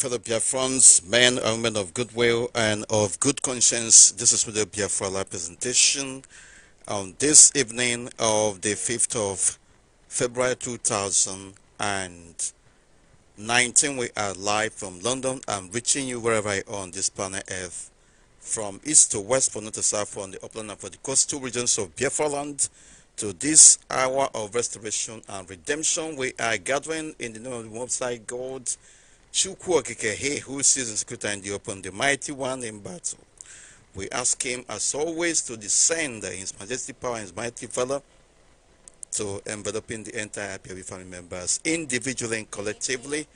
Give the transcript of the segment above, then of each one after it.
fellow Biafrans, men and women of goodwill and of good conscience. This is Mr. Biafra presentation on this evening of the 5th of February 2019. We are live from London. I'm reaching you wherever I on this planet Earth, from east to west, from north to south, from the upland and from the coastal regions of Biafra land to this hour of restoration and redemption. We are gathering in the name of the website God Chukwu Okike, who sees and Kutandi upon the mighty one in battle. We ask him, as always, to descend in his majestic power and his mighty valor to enveloping the entire IPOB family members, individually and collectively,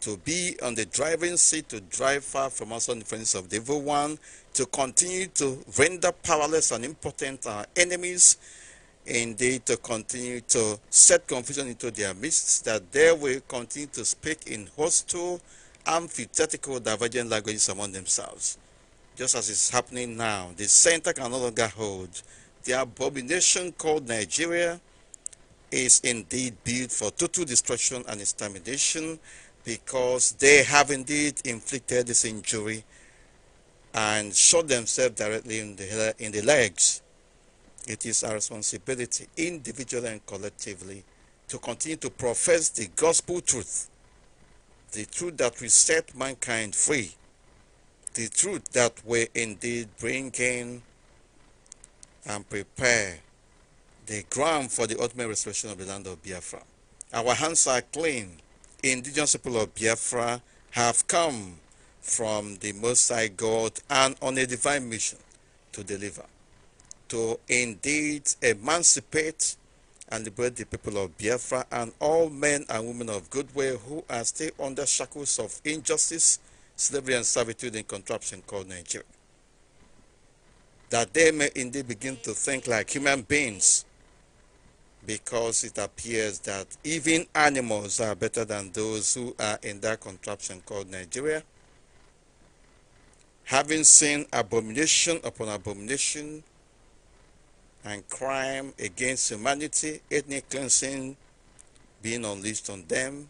to be on the driving seat, to drive far from us on the friends of the evil one, to continue to render powerless and impotent our enemies, indeed to continue to set confusion into their midst, that they will continue to speak in hostile, antithetical, divergent languages among themselves. Just as is happening now, the center can no longer hold. The abomination called Nigeria is indeed built for total destruction and extermination because they have indeed inflicted this injury and shot themselves directly in the, in the legs it is our responsibility, individually and collectively, to continue to profess the gospel truth, the truth that will set mankind free, the truth that will indeed bring in and prepare the ground for the ultimate restoration of the land of Biafra. Our hands are clean. Indigenous people of Biafra have come from the Most High God and on a divine mission to deliver to indeed emancipate and liberate the people of Biafra and all men and women of goodwill who are still under shackles of injustice, slavery, and servitude in contraption called Nigeria. That they may indeed begin to think like human beings because it appears that even animals are better than those who are in that contraption called Nigeria. Having seen abomination upon abomination, and crime against humanity, ethnic cleansing being unleashed on them,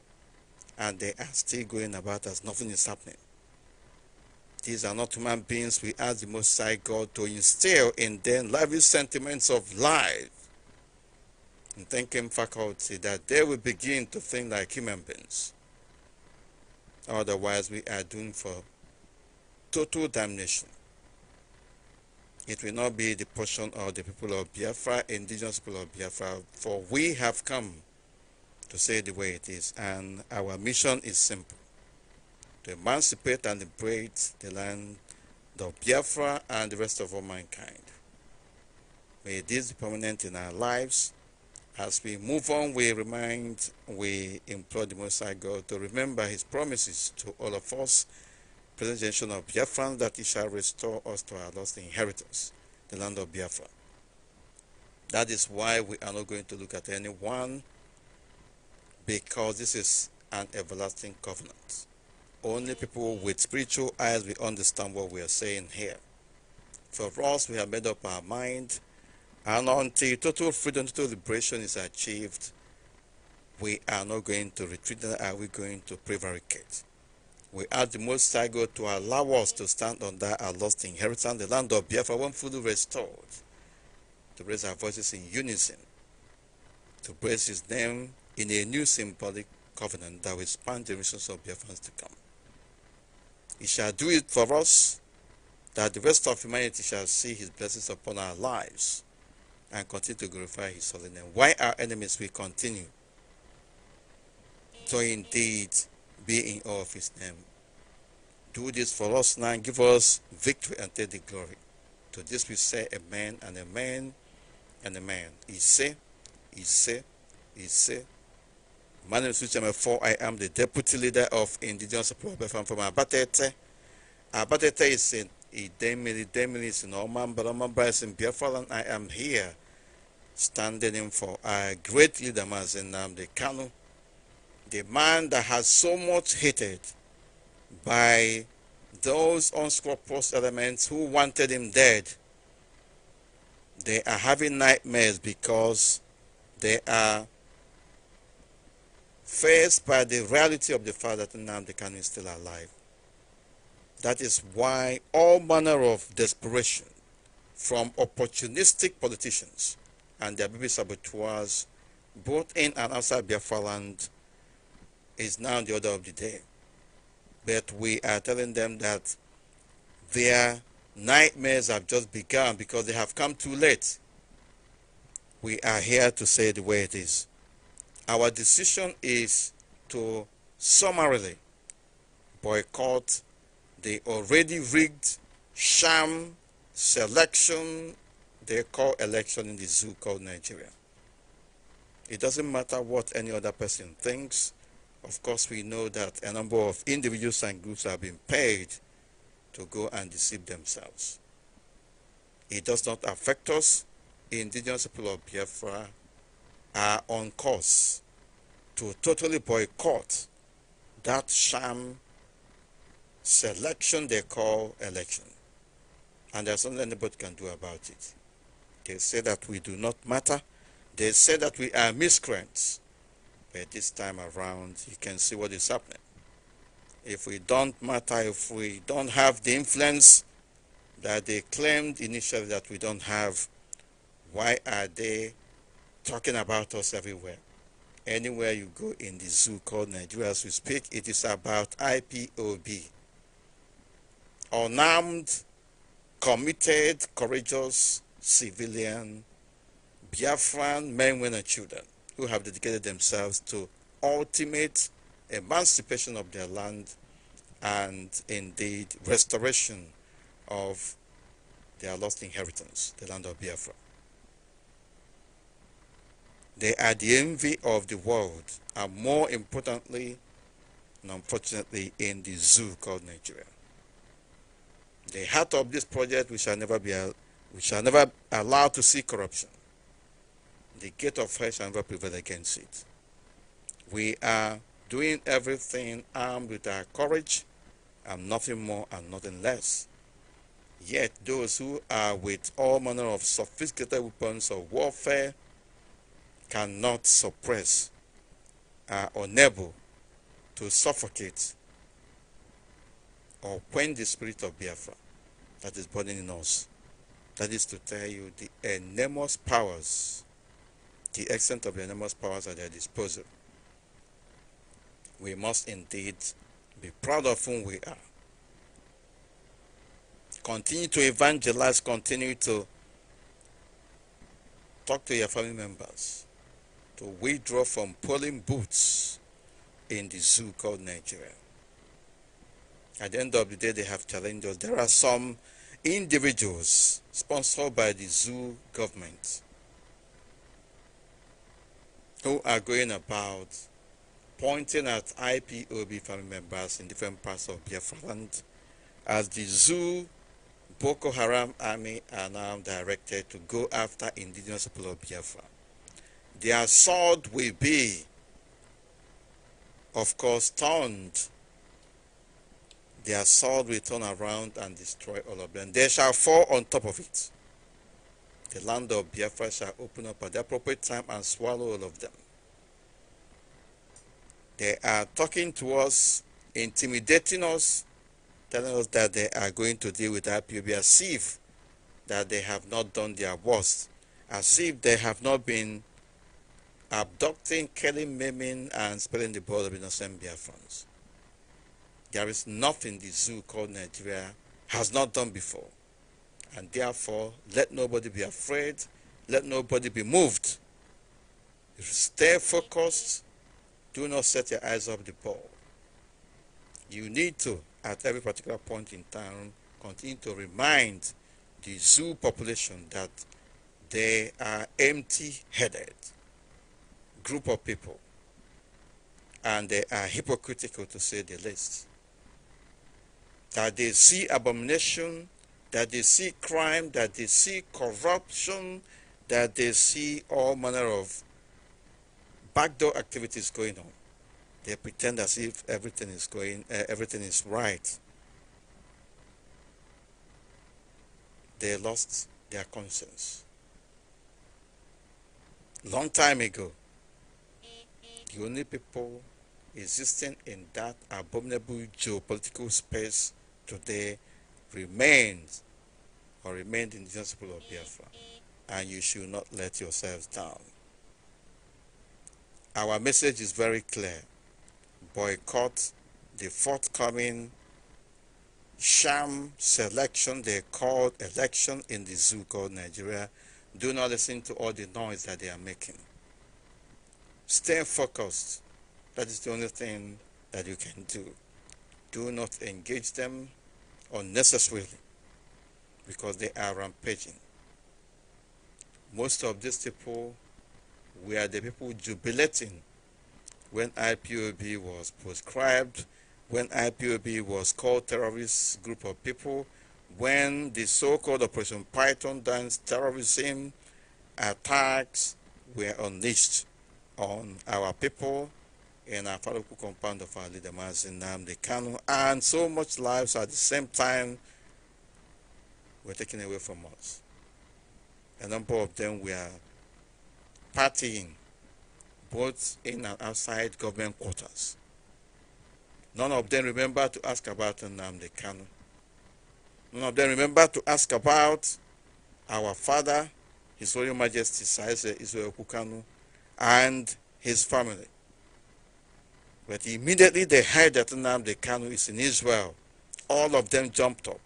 and they are still going about as nothing is happening. These are not human beings. We ask the Most High God to instill in them lively sentiments of life and thinking faculty that they will begin to think like human beings. Otherwise, we are doomed for total damnation it will not be the portion of the people of Biafra, indigenous people of Biafra, for we have come to say the way it is. And our mission is simple, to emancipate and liberate the land of Biafra and the rest of all mankind. May this be permanent in our lives. As we move on, we remind, we implore the Most High God to remember his promises to all of us presentation of Biafran that he shall restore us to our lost inheritance, the land of Biafra. That is why we are not going to look at anyone because this is an everlasting covenant. Only people with spiritual eyes will understand what we are saying here. For us, we have made up our mind, and until total freedom, total liberation is achieved, we are not going to retreat, are we going to prevaricate. We ask the Most High God to allow us to stand on that our lost inheritance, the land of Biafra, one fully restored, to raise our voices in unison, to praise His name in a new symbolic covenant that will span generations of Biafrans to come. He shall do it for us, that the rest of humanity shall see His blessings upon our lives and continue to glorify His holy name. Why our enemies will continue to indeed be in awe of his name. Do this for us now. Give us victory and take the glory. To this we say amen and amen and amen. He say, he say, he say. My name is Richard Mefo. I am the deputy leader of Indigenous People from, from Abatete. Abatete is in Idemili, Demili is in Oman, Omambra is in Biafra, and I am here standing in for our great leader, Mazen the Kanu the man that has so much hated by those unscrupulous elements who wanted him dead, they are having nightmares because they are faced by the reality of the fact that the Nnamdi is still alive. That is why all manner of desperation from opportunistic politicians and their baby saboteurs, both in and outside Biafra land, is now the order of the day. But we are telling them that their nightmares have just begun because they have come too late. We are here to say the way it is. Our decision is to summarily boycott the already rigged sham selection they call election in the zoo called Nigeria. It doesn't matter what any other person thinks. Of course, we know that a number of individuals and groups have been paid to go and deceive themselves. It does not affect us. Indigenous people of Biafra are on course to totally boycott that sham selection they call election. And there's nothing anybody can do about it. They say that we do not matter. They say that we are miscreants. But this time around, you can see what is happening. If we don't matter, if we don't have the influence that they claimed initially that we don't have, why are they talking about us everywhere? Anywhere you go in the zoo called Nigeria as we speak, it is about IPOB. Unarmed, committed, courageous civilian Biafran men, women, and children who have dedicated themselves to ultimate emancipation of their land and indeed restoration of their lost inheritance, the land of Biafra. They are the envy of the world and more importantly and unfortunately in the zoo called Nigeria. The heart of this project we shall never be we shall never allow to see corruption the gate of fresh and never prevail against it. We are doing everything armed with our courage and nothing more and nothing less. Yet those who are with all manner of sophisticated weapons of warfare cannot suppress, are unable to suffocate or quench the spirit of Biafra that is burning in us. That is to tell you the enormous powers the extent of the enormous powers at their disposal. We must indeed be proud of whom we are. Continue to evangelize, continue to talk to your family members, to withdraw from polling booths in the zoo called Nigeria. At the end of the day, they have challenges. There are some individuals sponsored by the zoo government who are going about pointing at IPOB family members in different parts of Biafra land as the zoo Boko Haram army are now directed to go after indigenous people of Biafra. Their sword will be, of course, turned. Their sword will turn around and destroy all of them. They shall fall on top of it. The land of Biafra shall open up at the appropriate time and swallow all of them. They are talking to us, intimidating us, telling us that they are going to deal with IPOB as if that they have not done their worst, as if they have not been abducting, killing, maiming, and spilling the blood of innocent Biafrans. There is nothing the zoo called Nigeria has not done before. And therefore, let nobody be afraid, let nobody be moved. Stay focused, do not set your eyes up the ball. You need to, at every particular point in time, continue to remind the zoo population that they are empty-headed group of people and they are hypocritical to say the least that they see abomination that they see crime, that they see corruption, that they see all manner of backdoor activities going on. They pretend as if everything is going, uh, everything is right. They lost their conscience. Long time ago, the only people existing in that abominable geopolitical space today remains or remained the people of Biafra, and you should not let yourselves down. Our message is very clear. Boycott the forthcoming sham selection they called election in the Zuko, Nigeria. Do not listen to all the noise that they are making. Stay focused. That is the only thing that you can do. Do not engage them unnecessarily because they are rampaging. Most of these people were the people jubilating when IPOB was proscribed, when IPOB was called terrorist group of people, when the so-called Operation Python dance terrorism attacks were unleashed on our people in our parable compound of our leader Mazin Namdi Kanu, and so much lives at the same time were taken away from us. A number of them were partying, both in and outside government quarters. None of them remember to ask about Namdi Kanu. None of them remember to ask about our father, His Royal Majesty Saise Israel Kukanu, and his family. But immediately they heard that the Kanu is in Israel, all of them jumped up.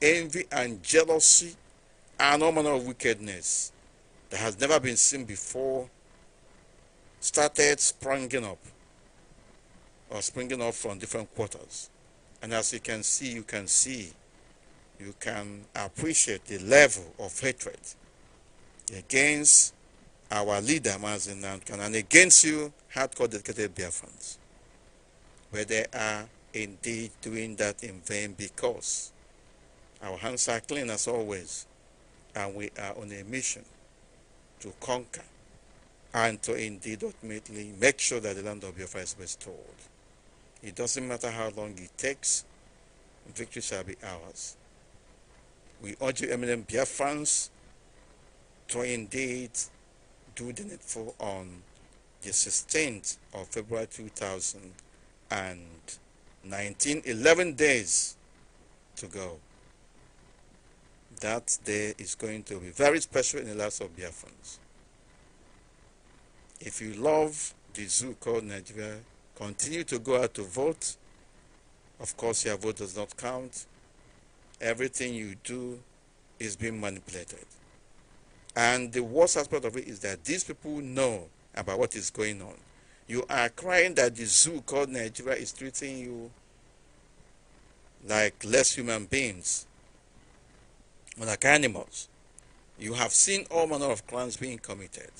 Envy and jealousy and all manner of wickedness that has never been seen before started springing up or springing up from different quarters. And as you can see, you can see, you can appreciate the level of hatred against our leader, Mazin Nankan, and against you, hardcore dedicated Biafrans where they are indeed doing that in vain because our hands are clean as always and we are on a mission to conquer and to indeed ultimately make sure that the land of Biafra is restored. It doesn't matter how long it takes, victory shall be ours. We urge you, eminent fans to indeed do the needful on the 16th of February 2000 and 19, 11 days to go. That day is going to be very special in the lives of Biafrans. If you love the zoo called Nigeria, continue to go out to vote. Of course, your vote does not count. Everything you do is being manipulated. And the worst aspect of it is that these people know about what is going on. You are crying that the zoo called Nigeria is treating you like less human beings, like animals. You have seen all manner of crimes being committed.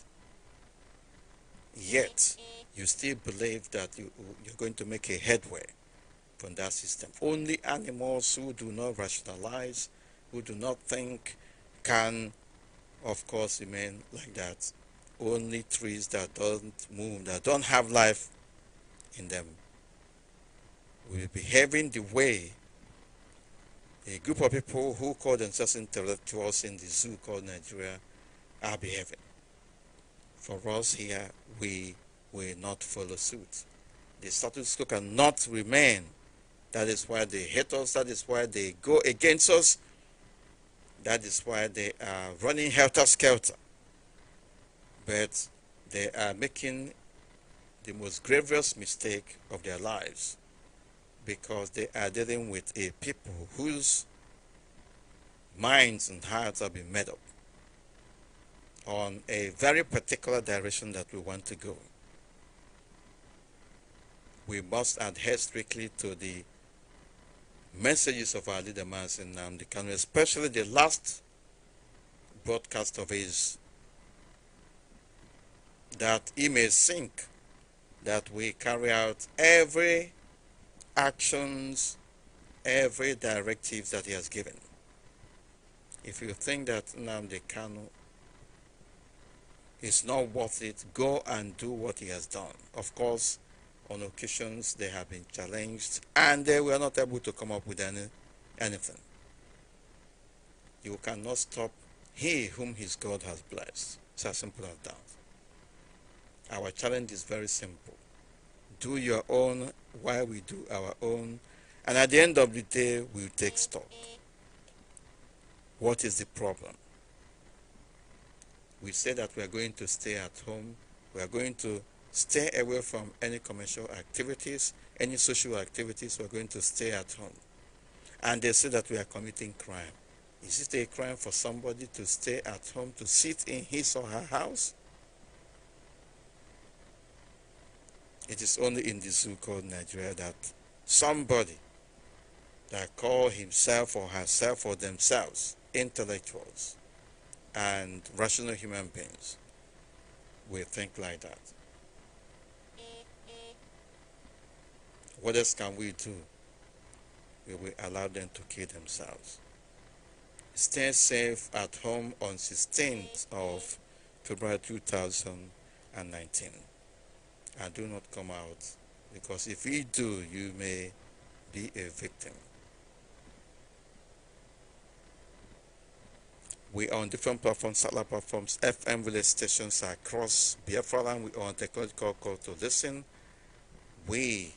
Yet, you still believe that you, you're going to make a headway from that system. Only animals who do not rationalize, who do not think, can, of course, remain like that only trees that don't move, that don't have life in them, will be having the way a group of people who call themselves intellectuals in the zoo called Nigeria are behaving. For us here, we will not follow suit. The status quo cannot remain. That is why they hate us. That is why they go against us. That is why they are running helter-skelter but they are making the most grievous mistake of their lives because they are dealing with a people whose minds and hearts have been made up on a very particular direction that we want to go. We must adhere strictly to the messages of our leader Masin Namdi Kanu, especially the last broadcast of his that he may think that we carry out every actions, every directive that he has given. If you think that Namde Kanu is not worth it, go and do what he has done. Of course, on occasions they have been challenged and they were not able to come up with any, anything. You cannot stop he whom his God has blessed. It's as simple as that. Our challenge is very simple. Do your own while we do our own. And at the end of the day, we'll take stock. What is the problem? We say that we are going to stay at home. We are going to stay away from any commercial activities, any social activities. We are going to stay at home. And they say that we are committing crime. Is it a crime for somebody to stay at home, to sit in his or her house? It is only in the zoo called Nigeria that somebody that call himself or herself or themselves intellectuals and rational human beings will think like that. What else can we do? We will allow them to kill themselves. Stay safe at home on 16th of February 2019 and do not come out because if you do you may be a victim we are on different platforms satellite platforms fm relay stations across biafra land we are on technological call to listen we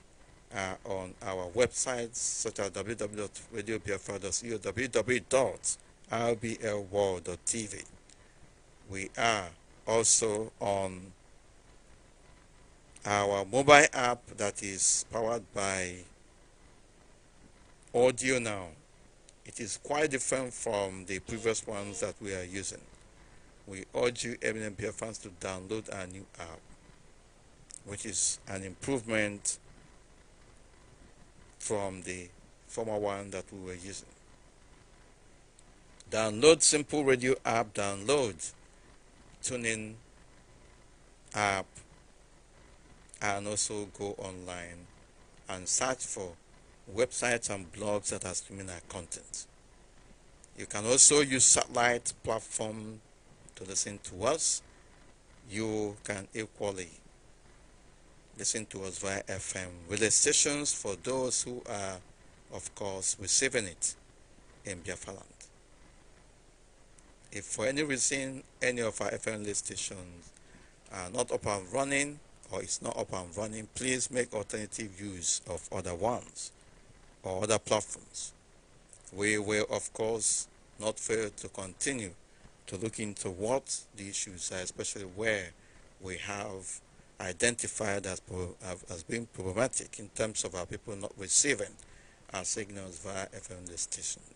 are on our websites such as www.radiobiafra.co www.rblworld.tv we are also on our mobile app that is powered by audio now it is quite different from the previous ones that we are using we urge you MNMPF fans to download our new app which is an improvement from the former one that we were using download simple radio app download tuning app and also go online and search for websites and blogs that has similar content. You can also use satellite platform to listen to us. You can equally listen to us via FM relay stations for those who are, of course, receiving it in Biafra land. If for any reason any of our FM relay stations are not up and running, or it's not up and running, please make alternative use of other ones or other platforms. We will, of course, not fail to continue to look into what the issues are, especially where we have identified as, as being problematic in terms of our people not receiving our signals via FM stations.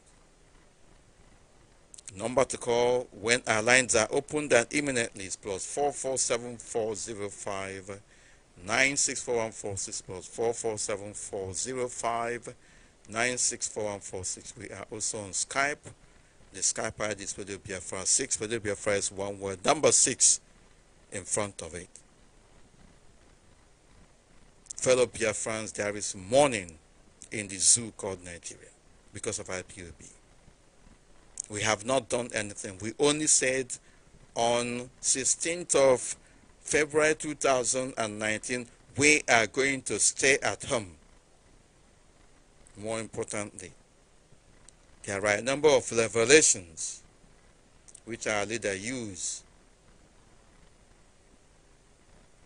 Number to call when our lines are opened and imminently is plus plus four four seven four zero five nine six four one four six plus four four seven four zero five nine six four one four six. We are also on Skype. The Skype ID is Radio Biafra 6. Radio Biafra is one word, number 6 in front of it. Fellow Biafrans, there is mourning in the zoo called Nigeria because of IPOB. We have not done anything. We only said on 16th of February 2019, we are going to stay at home. More importantly, there are a number of revelations which our leader used.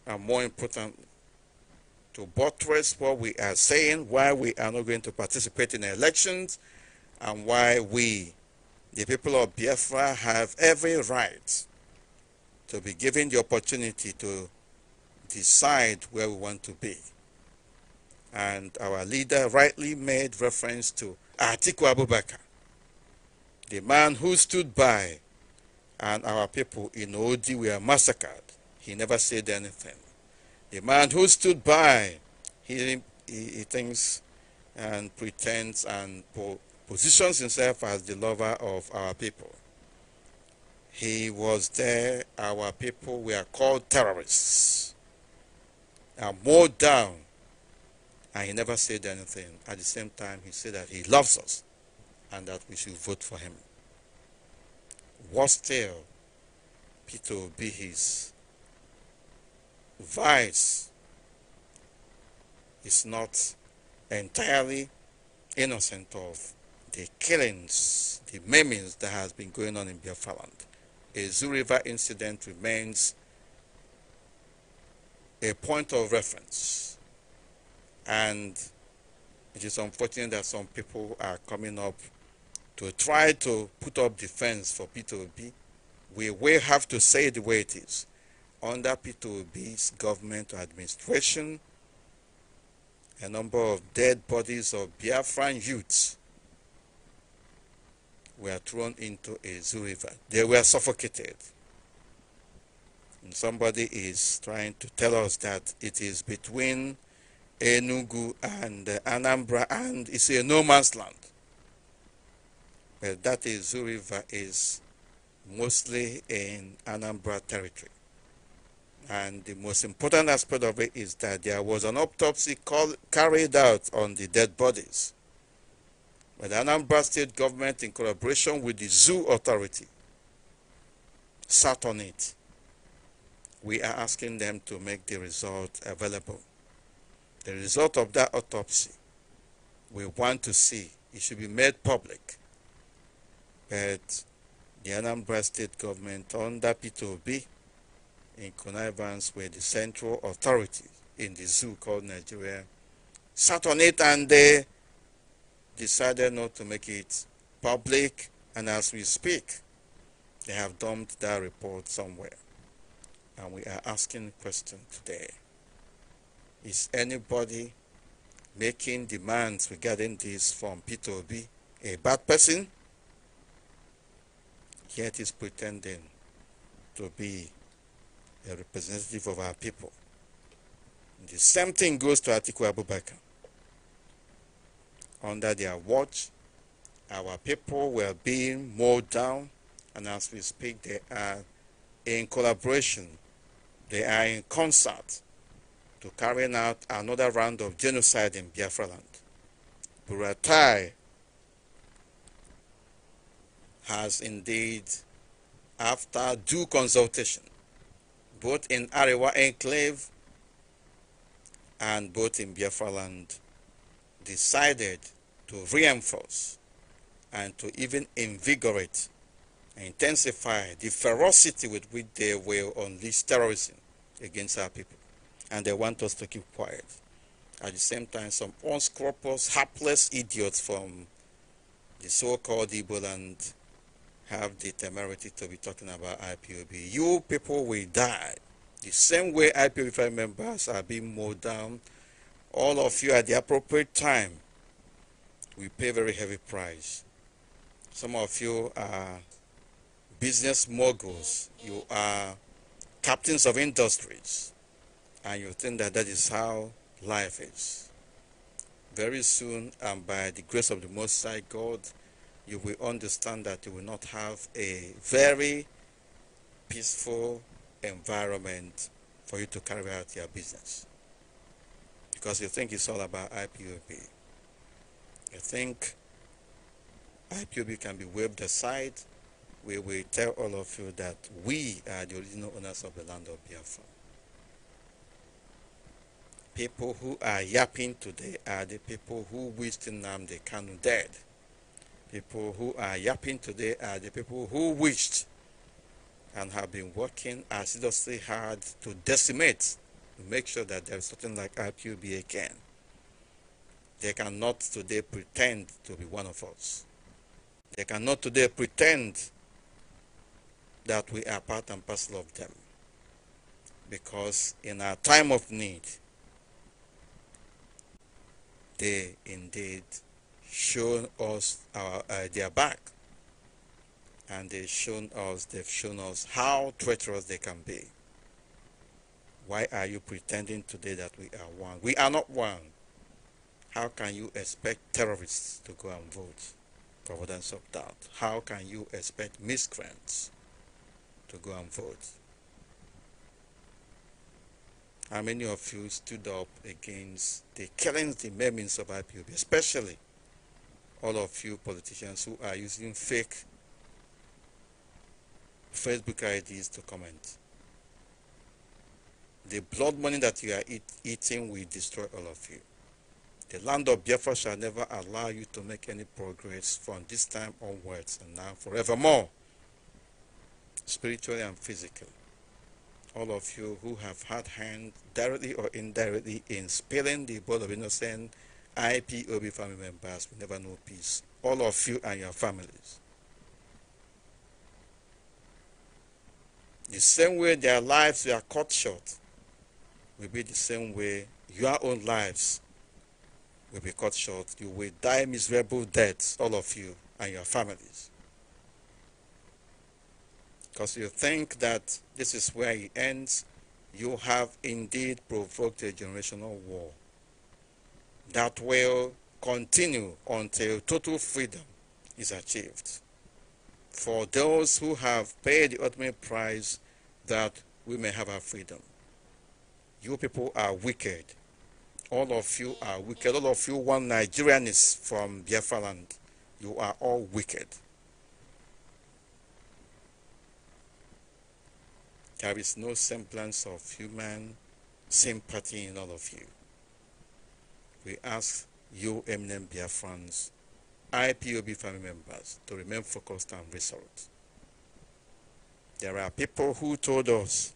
And more important, to buttress what we are saying, why we are not going to participate in elections, and why we the people of Biafra have every right to be given the opportunity to decide where we want to be. And our leader rightly made reference to Atiku Abubakar, the man who stood by and our people in Odi were massacred. He never said anything. The man who stood by, he, he, he thinks and pretends and positions himself as the lover of our people. He was there, our people were called terrorists and mowed down, and he never said anything. At the same time, he said that he loves us and that we should vote for him. Worse still, Peter will be his vice is not entirely innocent of the killings, the maimings that has been going on in Biafraland. A Zoo River incident remains a point of reference. And it is unfortunate that some people are coming up to try to put up defense for P2B. We will have to say the way it is. Under P2B's government administration, a number of dead bodies of Biafran youths were thrown into a zoo river. They were suffocated. And somebody is trying to tell us that it is between Enugu and uh, Anambra and it's a no man's land. Well, that Izu River is mostly in Anambra territory. And the most important aspect of it is that there was an autopsy call, carried out on the dead bodies by the Anambra State government in collaboration with the Zoo Authority sat on it. We are asking them to make the result available. The result of that autopsy, we want to see. It should be made public. But the Anambra State government under P2B in connivance with the central authority in the zoo called Nigeria sat on it and they decided not to make it public, and as we speak, they have dumped that report somewhere. And we are asking the question today. Is anybody making demands regarding this from P2B a bad person? Yet is pretending to be a representative of our people. The same thing goes to Atiku Abubakar under their watch. Our people were being mowed down, and as we speak, they are in collaboration, they are in concert to carry out another round of genocide in Biafra land. Buratai has indeed, after due consultation, both in Arewa enclave and both in Biafra land, decided to reinforce and to even invigorate and intensify the ferocity with which they will unleash terrorism against our people. And they want us to keep quiet. At the same time, some unscrupulous, hapless idiots from the so-called Igbo land have the temerity to be talking about IPOB. You people will die. The same way IPOB members are being mowed down all of you at the appropriate time we pay a very heavy price. Some of you are business moguls, you are captains of industries, and you think that that is how life is. Very soon, and by the grace of the Most High God, you will understand that you will not have a very peaceful environment for you to carry out your business because you think it's all about IPOB. You think IPOB can be waved aside. We will tell all of you that we are the original owners of the land of Biafra. People who are yapping today are the people who wished the canoe dead. People who are yapping today are the people who wished and have been working assiduously hard to decimate make sure that there's something like IPUBA again. They cannot today pretend to be one of us. They cannot today pretend that we are part and parcel of them. Because in our time of need, they indeed show us our, uh, their back and they've shown us they've shown us how treacherous they can be why are you pretending today that we are one? We are not one. How can you expect terrorists to go and vote? Providence of doubt. How can you expect miscreants to go and vote? How many of you stood up against the killings, the maimings of IPOB, especially all of you politicians who are using fake Facebook IDs to comment? the blood money that you are eat, eating will destroy all of you. The land of Biafra shall never allow you to make any progress from this time onwards and now forevermore, spiritually and physically. All of you who have had hand directly or indirectly in spilling the blood of innocent IPOB family members will never know peace. All of you and your families. The same way their lives were cut short will be the same way your own lives will be cut short. You will die miserable deaths, all of you and your families. Because you think that this is where it ends, you have indeed provoked a generational war that will continue until total freedom is achieved. For those who have paid the ultimate price that we may have our freedom. You people are wicked. All of you are wicked. All of you, one Nigerian is from Biafra land. You are all wicked. There is no semblance of human sympathy in all of you. We ask you, eminent Biafrans, IPOB family members, to remain focused and resolute. There are people who told us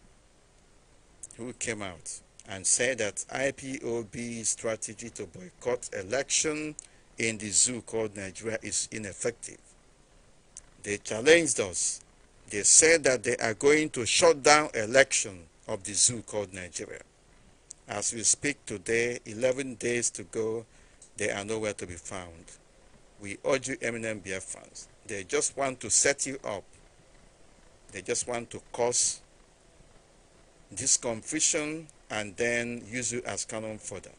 who came out and said that IPOB strategy to boycott election in the zoo called Nigeria is ineffective. They challenged us. They said that they are going to shut down election of the zoo called Nigeria. As we speak today, 11 days to go, they are nowhere to be found. We urge you, Eminem fans. they just want to set you up. They just want to cause this conviction and then use it as canon further.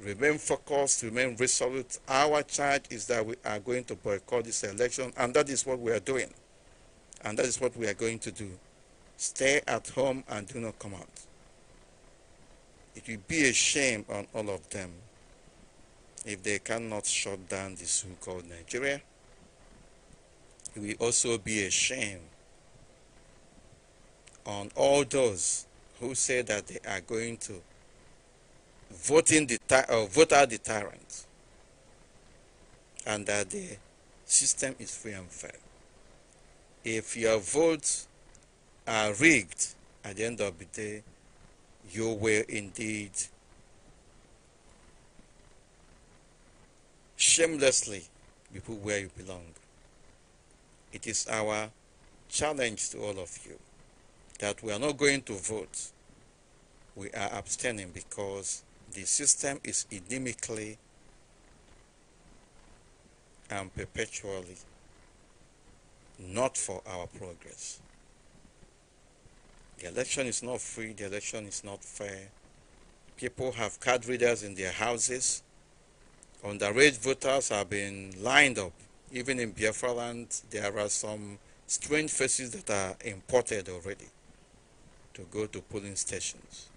Remain focused, remain resolute. Our charge is that we are going to boycott this election, and that is what we are doing. And that is what we are going to do. Stay at home and do not come out. It will be a shame on all of them if they cannot shut down this so-called Nigeria. It will also be a shame on all those who say that they are going to vote, in the uh, vote out the tyrant and that the system is free and fair. If your votes are rigged at the end of the day, you will indeed shamelessly be put where you belong. It is our challenge to all of you that we are not going to vote. We are abstaining because the system is endemically and perpetually not for our progress. The election is not free, the election is not fair. People have card readers in their houses. Underage voters have been lined up. Even in Biafra land, there are some strange faces that are imported already to go to polling stations.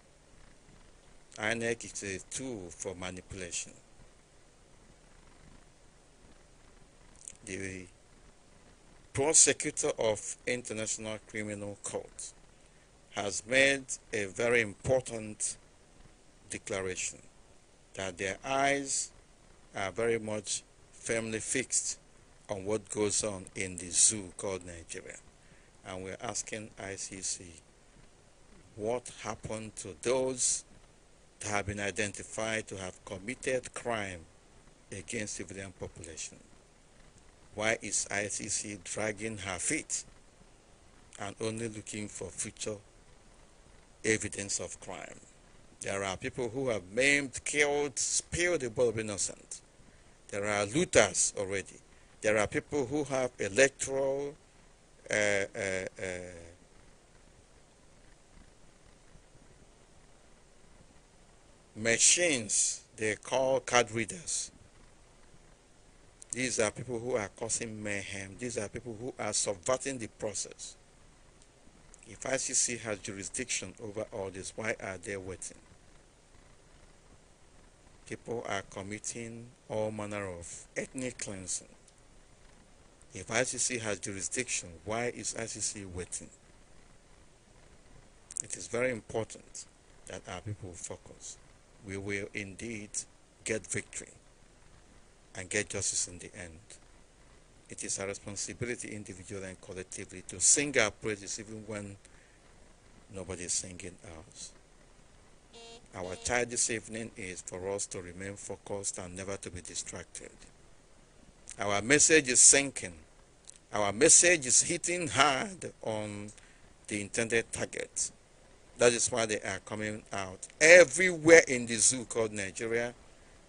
INEC is a tool for manipulation. The prosecutor of International Criminal Court has made a very important declaration that their eyes are very much firmly fixed on what goes on in the zoo called Nigeria. And we're asking ICC what happened to those that have been identified to have committed crime against civilian population. Why is ICC dragging her feet and only looking for future evidence of crime? There are people who have maimed, killed, spilled the blood of innocent. There are looters already. There are people who have electoral uh, uh, uh, machines they call card readers. These are people who are causing mayhem. These are people who are subverting the process. If ICC has jurisdiction over all this, why are they waiting? People are committing all manner of ethnic cleansing. If ICC has jurisdiction, why is ICC waiting? It is very important that our people focus we will indeed get victory and get justice in the end. It is our responsibility individually and collectively to sing our praises even when nobody is singing ours. Our charge this evening is for us to remain focused and never to be distracted. Our message is sinking. Our message is hitting hard on the intended target that is why they are coming out. Everywhere in the zoo called Nigeria,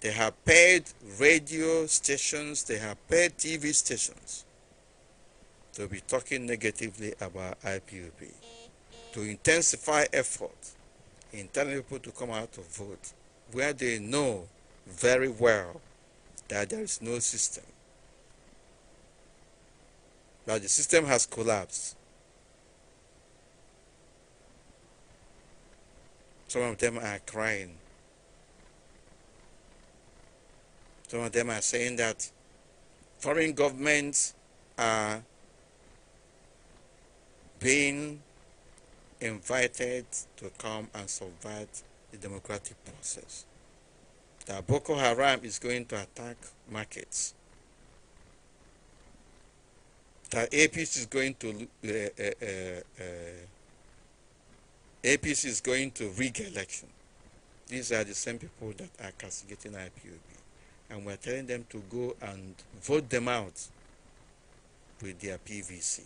they have paid radio stations, they have paid TV stations to be talking negatively about IPOP, to intensify effort in telling people to come out to vote, where they know very well that there is no system, that the system has collapsed Some of them are crying. Some of them are saying that foreign governments are being invited to come and subvert the democratic process. That Boko Haram is going to attack markets. That APC is going to uh, uh, uh, uh APC is going to rig election. These are the same people that are castigating IPOB. And we're telling them to go and vote them out with their PVC.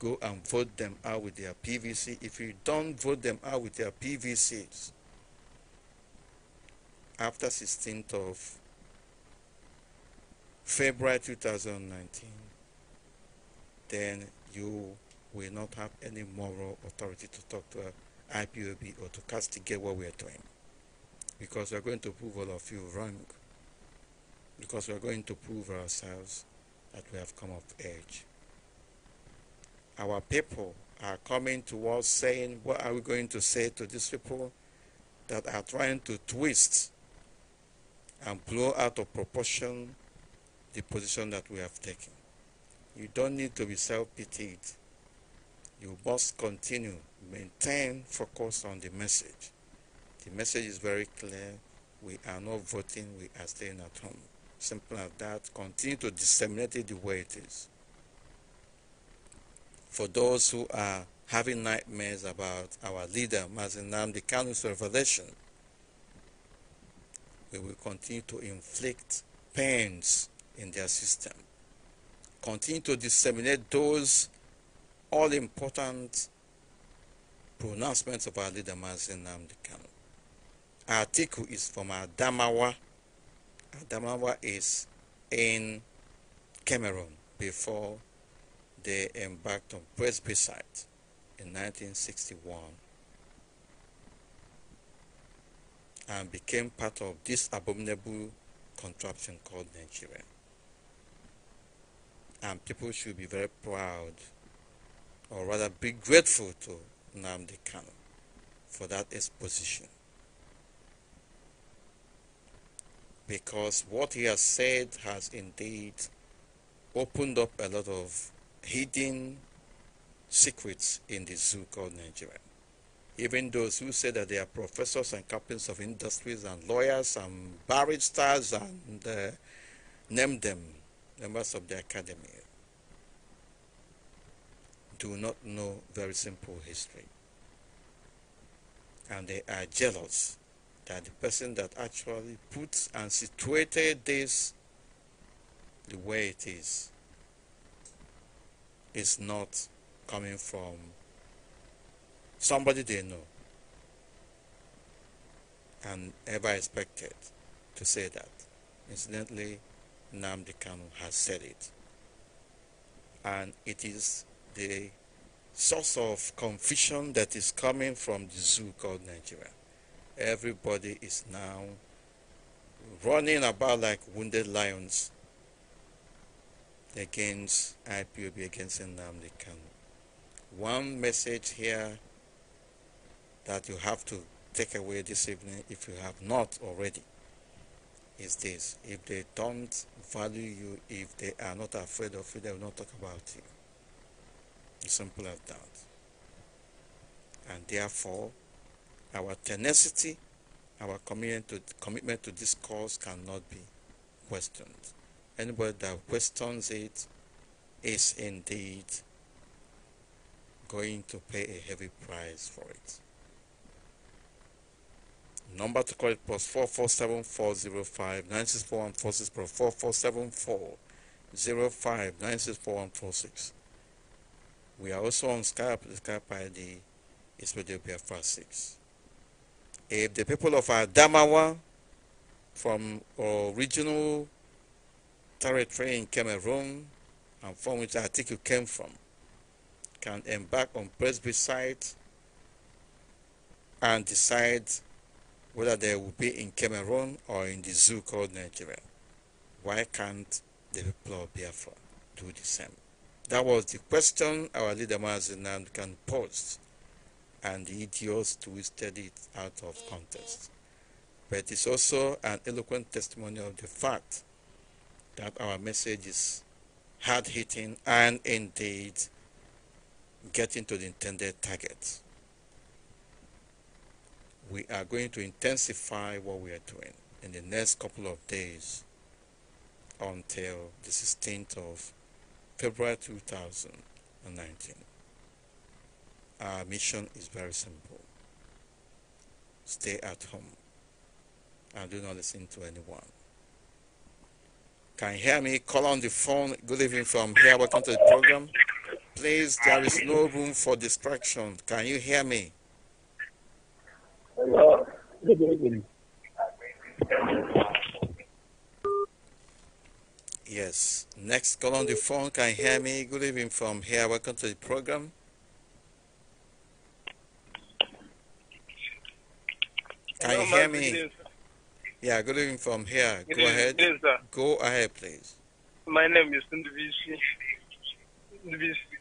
Go and vote them out with their PVC. If you don't vote them out with their PVCs, after 16th of February 2019, then you will not have any moral authority to talk to uh, IPOB or to castigate what we are doing. Because we are going to prove all of you wrong. Because we are going to prove ourselves that we have come of age. Our people are coming to us saying, what are we going to say to these people that are trying to twist and blow out of proportion the position that we have taken. You don't need to be self-pitied you must continue, maintain focus on the message. The message is very clear. We are not voting, we are staying at home. Simple as that. Continue to disseminate it the way it is. For those who are having nightmares about our leader, Mazin Namdi Kanu's revelation, we will continue to inflict pains in their system. Continue to disseminate those all important pronouncements of our leader Mazin Namdi Our article is from Adamawa. Adamawa is in Cameroon before they embarked on Presbycite in 1961 and became part of this abominable contraption called Nigeria. And people should be very proud or rather be grateful to Namdi Kano for that exposition. Because what he has said has indeed opened up a lot of hidden secrets in the zoo called Nigeria. Even those who say that they are professors and captains of industries and lawyers and barristers and uh, name them members of the academy do not know very simple history. And they are jealous that the person that actually puts and situated this the way it is is not coming from somebody they know and ever expected to say that. Incidentally, Namdekanu has said it. And it is the source of confusion that is coming from the zoo called Nigeria. Everybody is now running about like wounded lions against IPOB, against Nnamdi Kanu. One message here that you have to take away this evening, if you have not already, is this. If they don't value you, if they are not afraid of you, they will not talk about you simple as that. And therefore, our tenacity, our commitment to, commitment to this cause cannot be questioned. Anybody that questions it is indeed going to pay a heavy price for it. Number to call it plus 4474059641464 44740596416. We are also on Skype. The Skype ID is PDOPFR6. If the people of Adamawa from original territory in Cameroon and from which I think you came from can embark on Presbycide and decide whether they will be in Cameroon or in the zoo called Nigeria. Why can't the people of Biafra do the same? That was the question our leader Mazinan can pose, and the idiots twisted it out of context. But it is also an eloquent testimony of the fact that our message is hard hitting and indeed getting to the intended target. We are going to intensify what we are doing in the next couple of days until the 16th of February 2019. Our mission is very simple stay at home and do not listen to anyone. Can you hear me? Call on the phone. Good evening from here. Welcome to the program. Please, there is no room for distraction. Can you hear me? Hello. Good evening. Yes. Next call on the phone. Can you hear me? Good evening from here. Welcome to the program. Can Hello, you hear me? Yeah, good evening from here. go ahead. go ahead, please. My name is Ndvisi. Ndvisi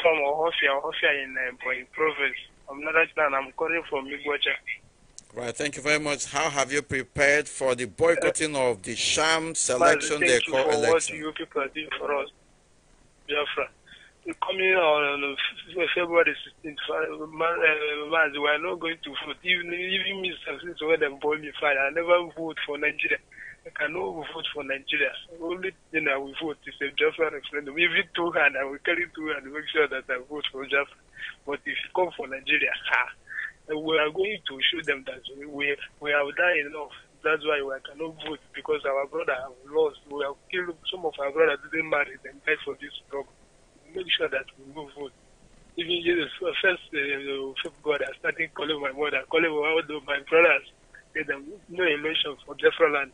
from Ohofia, Ohofia in uh, Province. I'm not right I'm calling from Miguacha. Right, thank you very much. How have you prepared for the boycotting of the sham selection they call election? What you people are doing for us, Biafra. Coming on uh, February 16th, uh, uh, man, we are not going to vote. Even, even Mr. since when they boy me fire, I never vote for Nigeria. I cannot vote for Nigeria. Only thing I will vote is a Biafra referendum. If Even two hand, I will carry two hand make sure that I vote for Biafra. But if you come for Nigeria, ha we are going to show them that we, we have done enough. That's why we cannot vote because our brother have lost. We have killed some of our brothers didn't marry and died for this problem. Make sure that we move vote. Even Jesus, first uh, uh God I started calling my mother, calling all the, my brothers, get them no emotion for Jeffra land.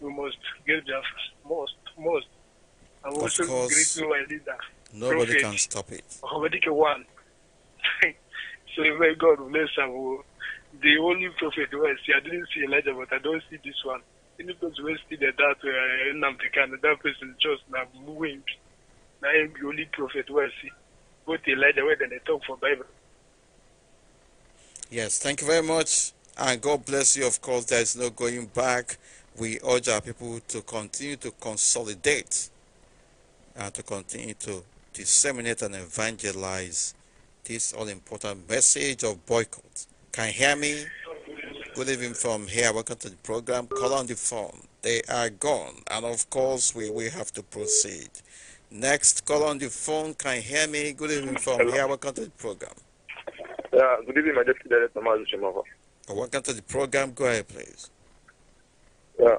We must give Jeffra most, most. I'm of also course, my leader. Nobody Prophet. can stop it. one. say, where God bless him. The only prophet was, I didn't see Elijah, but I don't see this one. Any person who see the that that uh, Namdekan, that person just now moving. Now I'm the only prophet who I see. Both Elijah, where they talk for Bible. Yes, thank you very much. And God bless you. Of course, there is no going back. We urge our people to continue to consolidate and to continue to disseminate and evangelize this all important message of boycott. Can you hear me? Good evening from here. Welcome to the program. Call on the phone. They are gone. And of course, we will have to proceed. Next, call on the phone. Can you hear me? Good evening from Hello. here. Welcome to the program. Yeah, good evening, my deputy director, Mazu oh, Welcome to the program. Go ahead, please. Yeah,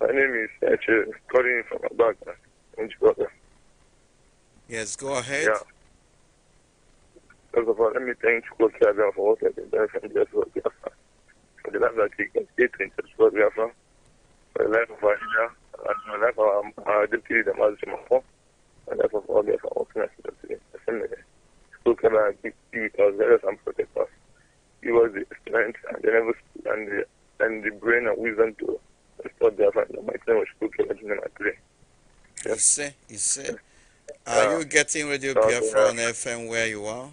my name is actually uh, calling from Abagna, Yes, go ahead. Yeah. First of all, let me thank School Chairman for what I've been doing from the for Biafra, for the life that he can stay to interest for Biafra, for the life of our leader, and for the life of our deputy, the Mazi Mafo, and the life of all Biafra workers today. School Chairman keep be with us, let us and protect us. He was the strength and the nervous and the, and the brain and wisdom to restore Biafra in the mighty name of School Chairman Junior Matri. Yes. You see, you see. Are uh, you getting Radio Biafra on FM where you are?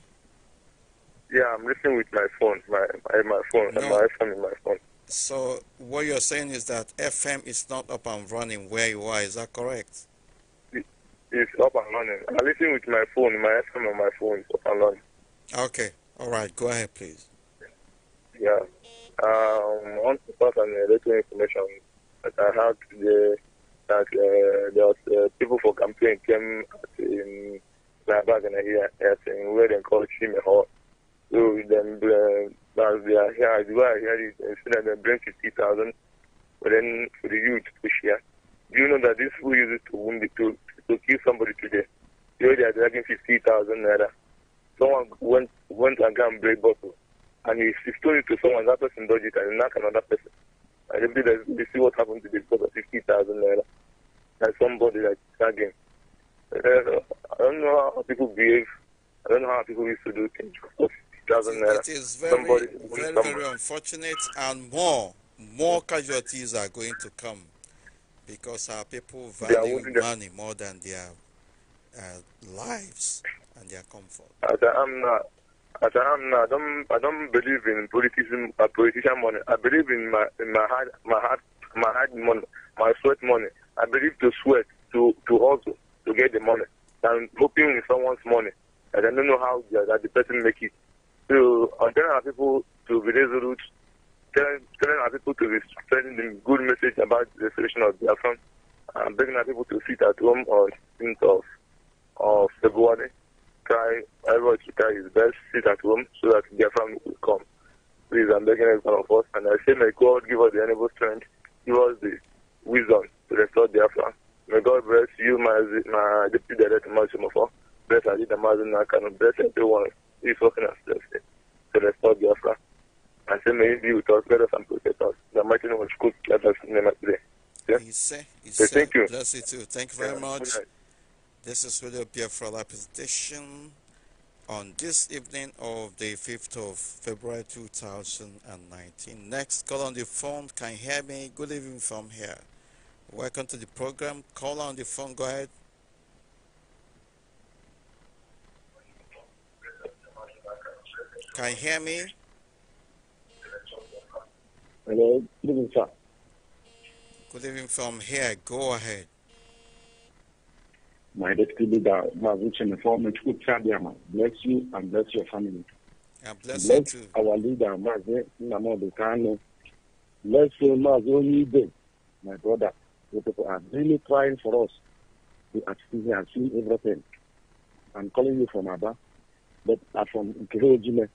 Yeah, I'm listening with my phone, my my, my phone, no. my iPhone in my phone. So what you're saying is that FM is not up and running where you are. Is that correct? it's up and running. I'm listening with my phone, my FM on my phone up and running. Okay. All right. Go ahead, please. Yeah. Um, I want to pass on a little information that I had today that uh, there was uh, people for campaign came in my bag and I hear saying where they call Chimehor. So then uh, as they are here as well, here instead uh, of bring fifty thousand, but then for the youth to share. Do you know that this who uses to wound to to kill somebody today? You know they are dragging fifty thousand naira. Someone went went and got a break bottle, and he, he stole it to someone. That person dodged it and knocked another person. And they, they, they see what happened to this because of fifty thousand naira. And somebody like dragging. Uh, I don't know how people behave. I don't know how people used to do things doesn't matter. It is very, very, very unfortunate, and more, more casualties are going to come because our people value money more than their uh, lives and their comfort. As I am not, as I am I don't, I don't believe in politician, uh, politician money. I believe in my, in my heart, my heart, my heart money, my sweat money. I believe to sweat, to, to hustle, to get the money. I'm in someone's money. I don't know how the, that the person make it to uh, telling our people to be resolute, telling, telling our people to be spreading the good message about the solution of Biafra, and begging our people to sit at home on 16th of, of February. Try, everyone to try his best, sit at home so that Biafra will come. Please, I'm begging every one of us, and I say, may God give us the enable strength, give us the wisdom to restore Biafra. May God bless you, my, my deputy director, Mount Bless I Mazinakano, bless everyone us before finansledelse să răspund eu asta. Asemenea, viitor, speră să-mi procesat. Dar mai tine mă scut, chiar dacă sunt nemaitre. Ise, Ise, thank you. bless you too. Thank you very much. This is William Pierre for presentation on this evening of the 5th of February 2019. Next, call on the phone. Can you hear me? Good evening from here. Welcome to the program. Call on the phone. Go ahead. Can you hear me? Hello, good evening, sir. Good evening from here. Go ahead. My deputy leader, my Mavuchen, former Chukwu bless you and bless your family. And bless, bless you too. our leader, Mazi Namodu Kano. Bless you, Mazi Onyibe, my brother. The people are really trying for us. We are seeing everything. I'm calling you from Abba, but from Nkehojime.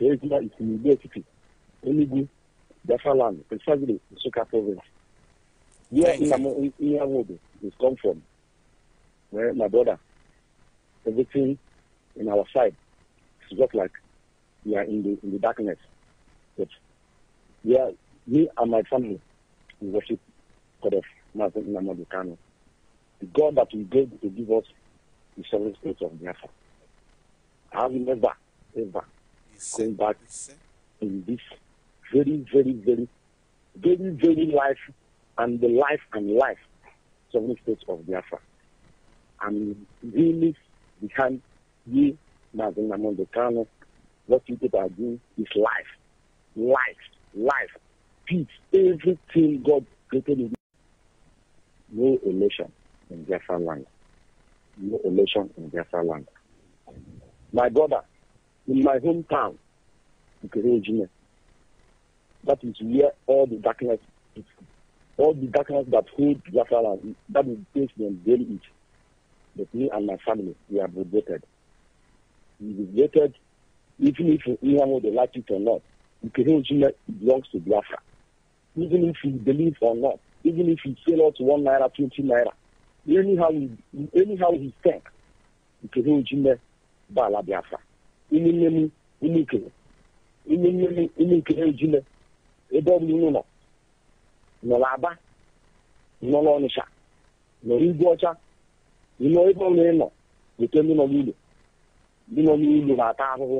Ejima is in City, Enugu, precisely province. Where come from, where my brother, everything in our side just like we are in the, in the darkness. But we are, me and my family, we worship God of Mazin Namadu Kano. The God that we gave to give us the sovereign state of Biafra. I will never, ever but in this very, very, very, very, very life and the life and life the state of Biafra. I'm really behind you, Mazin Namondekano. What you people are doing is life, life, life, peace, everything God created in No elation in Biafra land. No elation in Biafra land. My brother, in my hometown, Virginia. That is where all the darkness is. All the darkness that hold Biafra, that is based and daily it. But me and my family, we are liberated. We liberated, even if anyone they like it or not. Virginia belongs to Biafra. Even if he believe or not, even if he sell out one naira, twenty naira, anyhow, anyhow he thinks, Virginia, Bala Biafra. nne m ikele ime nne m ime ikere ejile ebe ọ bụla unu nọ n'Aba nọ n'Ọnịsha nọ n'Igwe Ọcha ịnọ ebe ọbụla ị nọ weta ndị nọ n'ụlọ ndị nọ n'ụlọ na-ata ahụhụ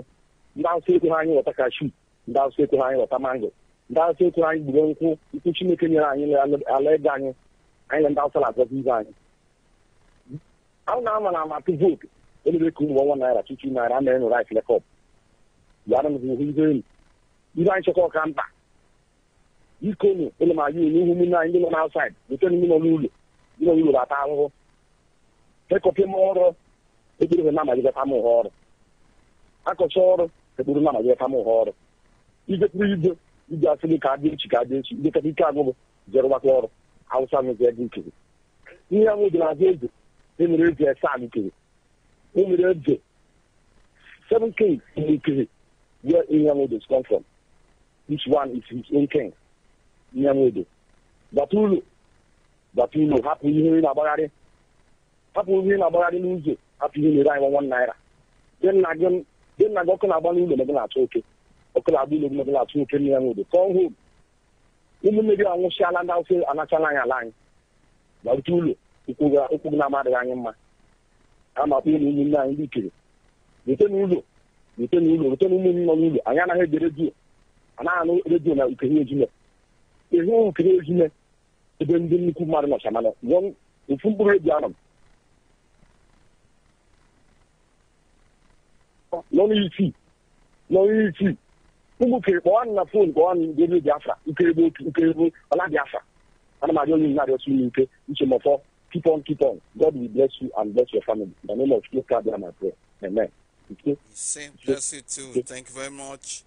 ndị Awụsa ekwere anyị ghọta kashu ndị Awụsa ekwere anyị ghọta mango ndị Awụsa ekwere anyị gburu nkwụ nkwụ Chineke nyere anyị ala ego anyị anyị na ndị Awụsa na-agọzi ibe anyị ahụ na-ama na amatụ vootu elebeka ụmụ ọnwa naira tutu naira ana enwere anyị flekọp yara m hụ ihe elu ihe anyị chọkọ ọka mkpa biko nụ ele ma yun ihu ụmụnne ndị nọ n'aụsaid bute ndị nọ n'ụlọ n'ụlọ ata ahụhụ ọrụ na amagideta ọrụ akọcha ọrụ ekpere na amagideta m ọrụ ijekwuru ije ije asịrị ka adị echi ka adị echi idekata ike ọrụ ihe ahụ dị na-azụ eze emere o nwere eze seven kings in Ikiri, where is come from. Each one is his own king. Batulu. Batulu. Hapụ ihe na-agbagharị. Hapụ ihe na-agbagharị n'ụzọ. Hapụ ihe na-ere anyị naira. Dị nna gị ọkụ na-agba n'ụlọ mebe na oke. Ọkụ na-agba ụlọ mebe na-achọ oke n'Inyamodo. Kọọ home. Ụmụnne gị anwụchiala ndị Hausa anachala anyị ala anyị. Batulu. Okwu gị na-amadịghị anyị mma. a na-akpọ ụmụ ụmụnne anyị ndị ikere rute n'ụlọ rute n'ụlọ rute n'ụmụ m nọ n'ụlọ anyị anaghị ege redio anaghị anụ redio na ukiri ejime ịhụ ukiri ejime ebe ndị nnukwu mmadụ nọcha mana ofu mkpụrụ ebi anọ m n'ọnụ isii n'ọnụ isii ụmụ ukiri kpọọ na fon kpọọ na ndị redio biafra ukiri bụ otu ukiri bụ ọla biafra ana m arịọ onye na-arịọsi ike uche m ọfọ keep on, keep on. God will bless you and bless your family. In the name of Jesus, God, my prayer. Amen. Okay. Same. Bless you too. Okay. Thank you very much.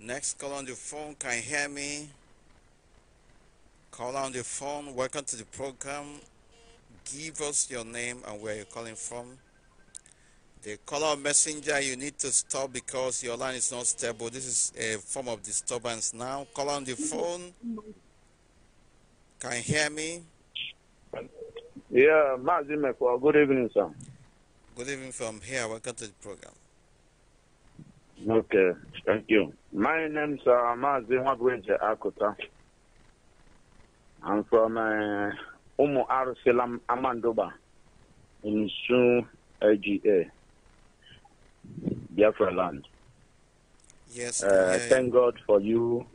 Next call on the phone. Can you hear me? Call on the phone. Welcome to the program. Give us your name and where you're calling from. The caller messenger, you need to stop because your line is not stable. This is a form of disturbance now. Call on the phone. Can you hear me? Yeah, Mazimekwa, good evening, sir. Good evening from here. Welcome to the program. Okay, thank you. My name is uh, Mazimekwa Akuta. I'm from uh, Umu Amandoba in Sun AGA, Biafra land. Yes. Uh, Thank God for you.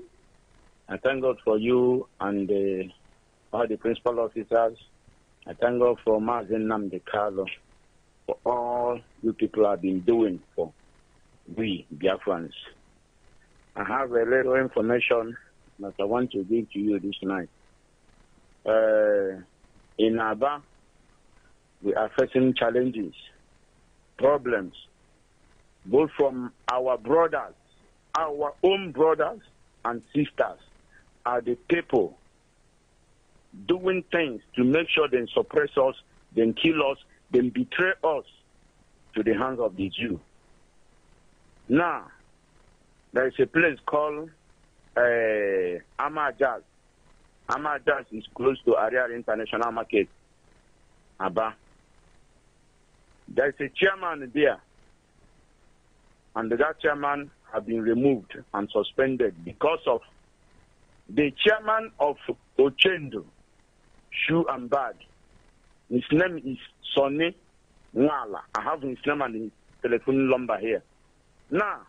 I thank God for you and uh, all the principal officers I thank God for Mazen for all you people have been doing for we Biafrans. I have a little information that I want to give to you this night. Uh, in Aba, we are facing challenges, problems, both from our brothers, our own brothers and sisters, are the people doing things to make sure they suppress us, then kill us, then betray us to the hands of the Jew. Now, there is a place called uh, Amajaz. Amajaz is close to Ariar International Market, Aba. There is a chairman there, and that chairman has been removed and suspended because of the chairman of Ochendo shoe and bag. His name is Sonny Mwala. I have his name and his telephone number here. Now,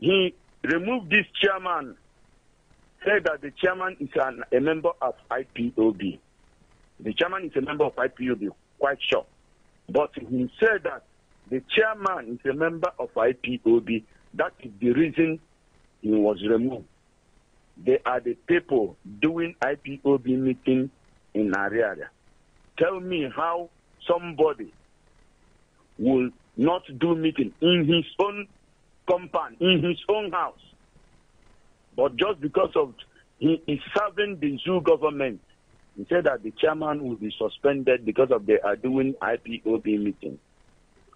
he removed this chairman, said that the chairman is an, a member of IPOB. The chairman is a member of IPOB, quite sure. But he said that the chairman is a member of IPOB. That is the reason he was removed. They are the people doing IPOB meeting in area, Tell me how somebody will not do meeting in his own compound, in his own house, but just because of he is serving the zoo government, he said that the chairman will be suspended because of they are doing IPOB meeting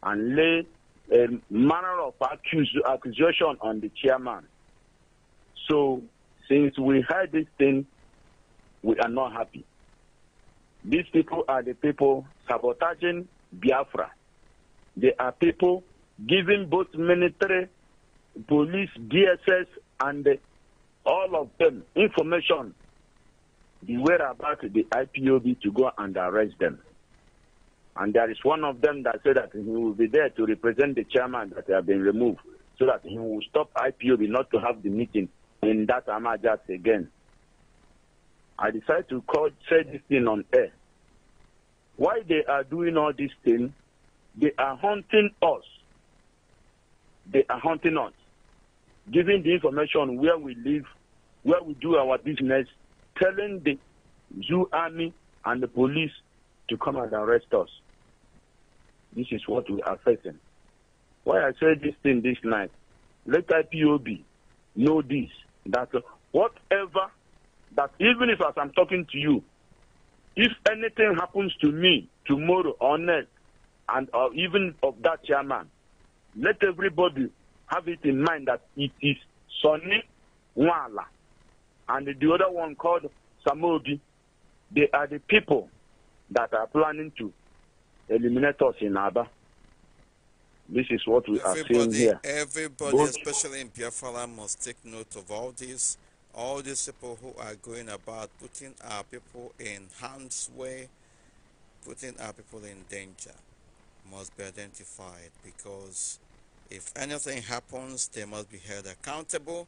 and lay a manner of accusation on the chairman. So, since we heard this thing, we are not happy. These people are the people sabotaging Biafra. They are people giving both military, police, DSS, and all of them information the whereabouts the IPOB to go and arrest them. And there is one of them that said that he will be there to represent the chairman that have been removed so that he will stop IPOB not to have the meeting in that Amajas again. I decided to call, say this thing on air why they are doing all these things, they are hunting us. They are hunting us, giving the information where we live, where we do our business, telling the zoo army and the police to come and arrest us. This is what we are facing. Why I say this thing this night, let IPOB know this, that whatever, that even if as I'm talking to you, if anything happens to me tomorrow or next, and or even of that chairman, let everybody have it in mind that it is Sonny Wala and the other one called Samogi. They are the people that are planning to eliminate us in Aba. This is what we everybody, are saying here. Everybody, Both, especially in Biafra, must take note of all this all these people who are going about putting our people in harm's way, putting our people in danger, must be identified because if anything happens, they must be held accountable.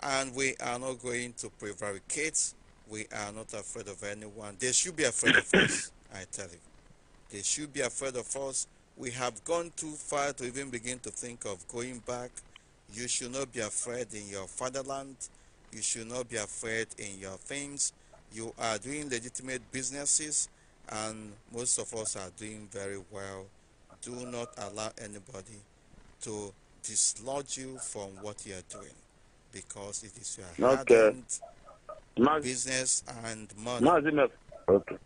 And we are not going to prevaricate. We are not afraid of anyone. They should be afraid of us, I tell you. They should be afraid of us. We have gone too far to even begin to think of going back. You should not be afraid in your fatherland you should not be afraid in your things. You are doing legitimate businesses, and most of us are doing very well. Do not allow anybody to dislodge you from what you are doing because it is your okay. business and money. okay.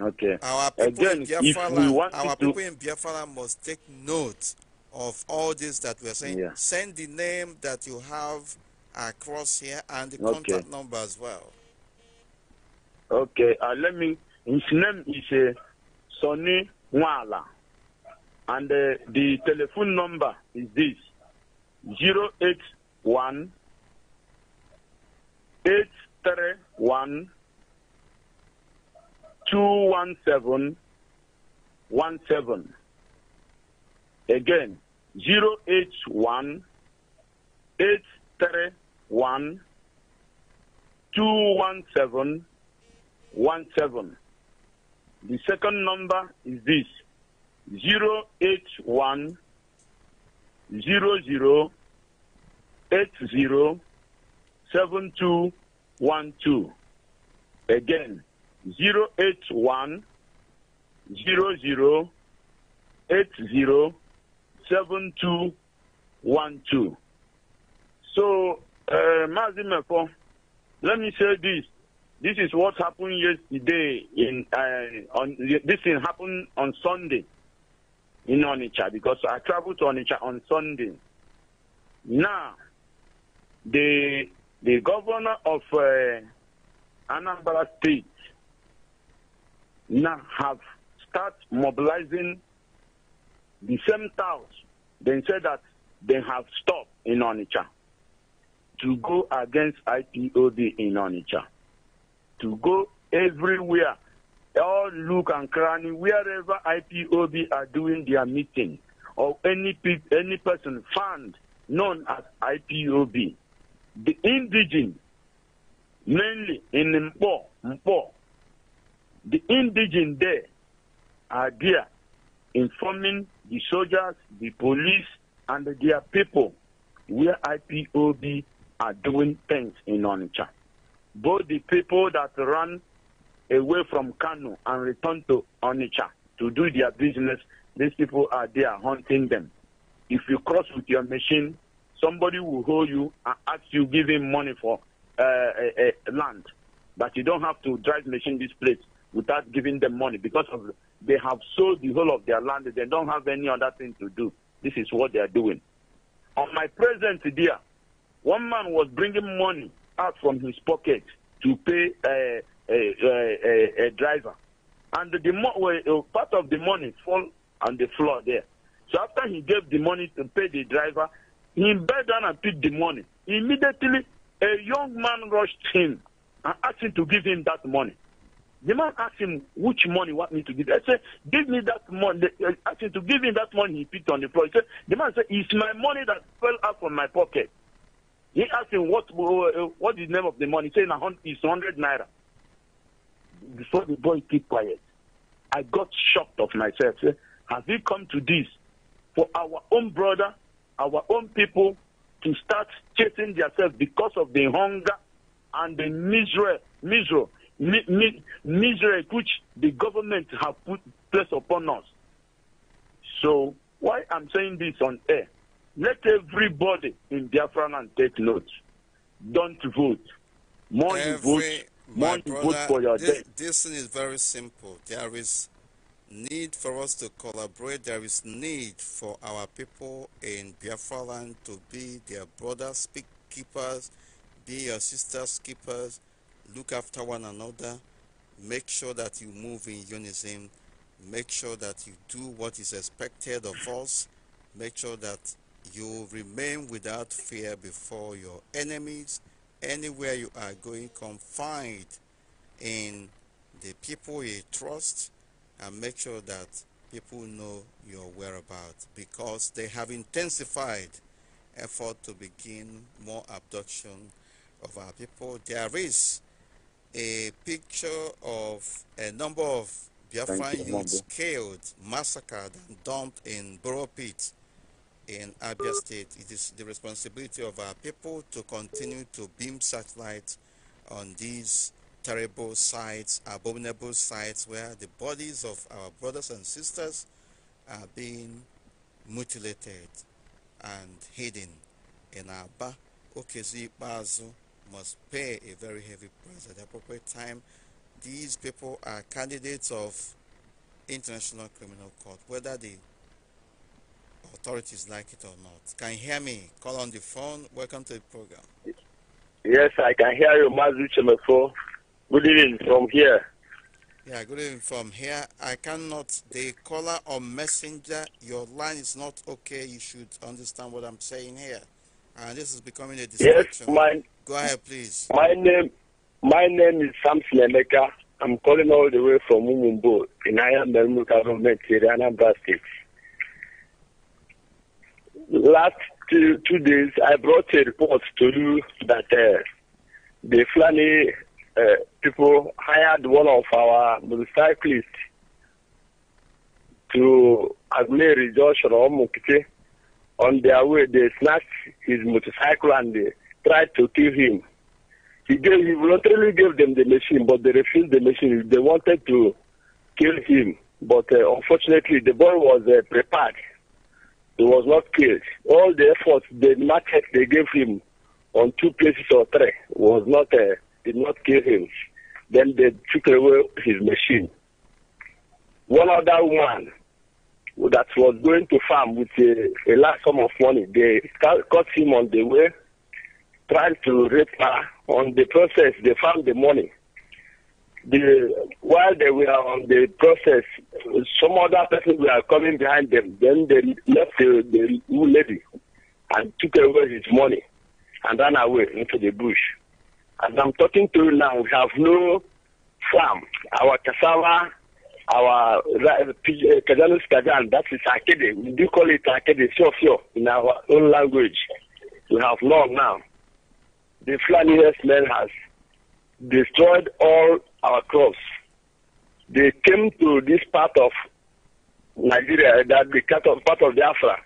Okay. Our people Again, in Biafra, our people to... in Biafra must take note of all this that we are saying. Yeah. Send the name that you have uh, across here and the okay. contact number as well. Okay, uh, let me. His name is uh, Sonny Wala, and uh, the telephone number is this: zero eight one eight three one two one seven one seven. Again, zero eight one eight three one two one seven one seven. The second number is this zero eight one zero zero eight zero seven two one two. Again, zero eight one zero zero eight zero seven two one two. So uh, let me say this. This is what happened yesterday. In uh, on this thing happened on Sunday in Onitsha because I traveled to Onitsha on Sunday. Now, the the governor of uh, Anambra State now have start mobilizing the same towns. They said that they have stopped in Onitsha to go against IPOB in Onitsha, to go everywhere, all look and cranny, wherever IPOB are doing their meeting, or any, pe any person found known as IPOB. The indigenous, mainly in Mpo, Mpo, the indigenous there are there informing the soldiers, the police, and their people where IPOB are doing things in Onitsha. Both the people that run away from Kano and return to Onitsha to do their business, these people are there hunting them. If you cross with your machine, somebody will hold you and ask you give him money for uh, uh, uh land. But you don't have to drive machine this place without giving them money because of they have sold the whole of their land. They don't have any other thing to do. This is what they are doing. On my present dear, one man was bringing money out from his pocket to pay uh, a, a, a, a driver. And the mo- part of the money fall on the floor there. So after he gave the money to pay the driver, he bent down and picked the money. Immediately, a young man rushed him and asked him to give him that money. The man asked him which money want me to give. I said, give me that money. asked him to give him that money he picked on the floor. He said, the man said, it's my money that fell out from my pocket. He asked him, what, uh, what is the name of the money? He said, it's 100 naira. Before the boy keep quiet, I got shocked of myself. Has we come to this for our own brother, our own people to start chasing themselves because of the hunger and the misery, misery, mi- misery which the government have put place upon us. So why I'm saying this on air let everybody in Biafra land take note. Don't vote. More Every, you vote, more brother, you vote for your this, death. This thing is very simple. There is need for us to collaborate. There is need for our people in Biafra land to be their brothers, speak keepers, be your sisters keepers, look after one another, make sure that you move in unison, make sure that you do what is expected of us, make sure that you remain without fear before your enemies. Anywhere you are going, Confined in the people you trust and make sure that people know your whereabouts because they have intensified effort to begin more abduction of our people. There is a picture of a number of Biafran youths killed, massacred, and dumped in burrow pits in Abia State, it is the responsibility of our people to continue to beam satellites on these terrible sites, abominable sites where the bodies of our brothers and sisters are being mutilated and hidden in Aba. Okezi Bazu must pay a very heavy price at the appropriate time. These people are candidates of International Criminal Court, whether they authorities like it or not. Can you hear me? Call on the phone. Welcome to the program. Yes, I can hear you, Mazu Chemefo. Good evening from here. Yeah, good evening from here. I cannot, the caller or messenger, your line is not okay. You should understand what I'm saying here. And uh, this is becoming a distraction. Yes, my, Go ahead, please. My name, my name is Sam Slemeka. I'm calling all the way from Mumumbo in Iron Ayam Government, Anambra State last two, two, days, I brought a report to you that uh, the Fulani uh, people hired one of our motorcyclists to Agmeri Joshua Omukite. On their way, they snatched his motorcycle and they tried to kill him. He, gave, he voluntarily gave them the machine, but they refused the machine. They wanted to kill him, but uh, unfortunately, the boy was uh, prepared he was not killed. All the efforts, the market they gave him on two places or three was not uh, did not kill him. Then they took away his machine. One other woman that was going to farm with a, a large sum of money, they caught him on the way, trying to rape her. On the process, they found the money the while they were on the process, some other person were coming behind them. Then they left the, the lady and took away his money and ran away into the bush. As I'm talking to you now, we have no farm. Our cassava, our Kajanus uh, uh, Kajan, that is Akede. We do call it Akede, sure, sure, in our own language. We have none now. The Flanius men has destroyed all our crops. They came to this part of Nigeria, eh, that the part of, part of Biafra,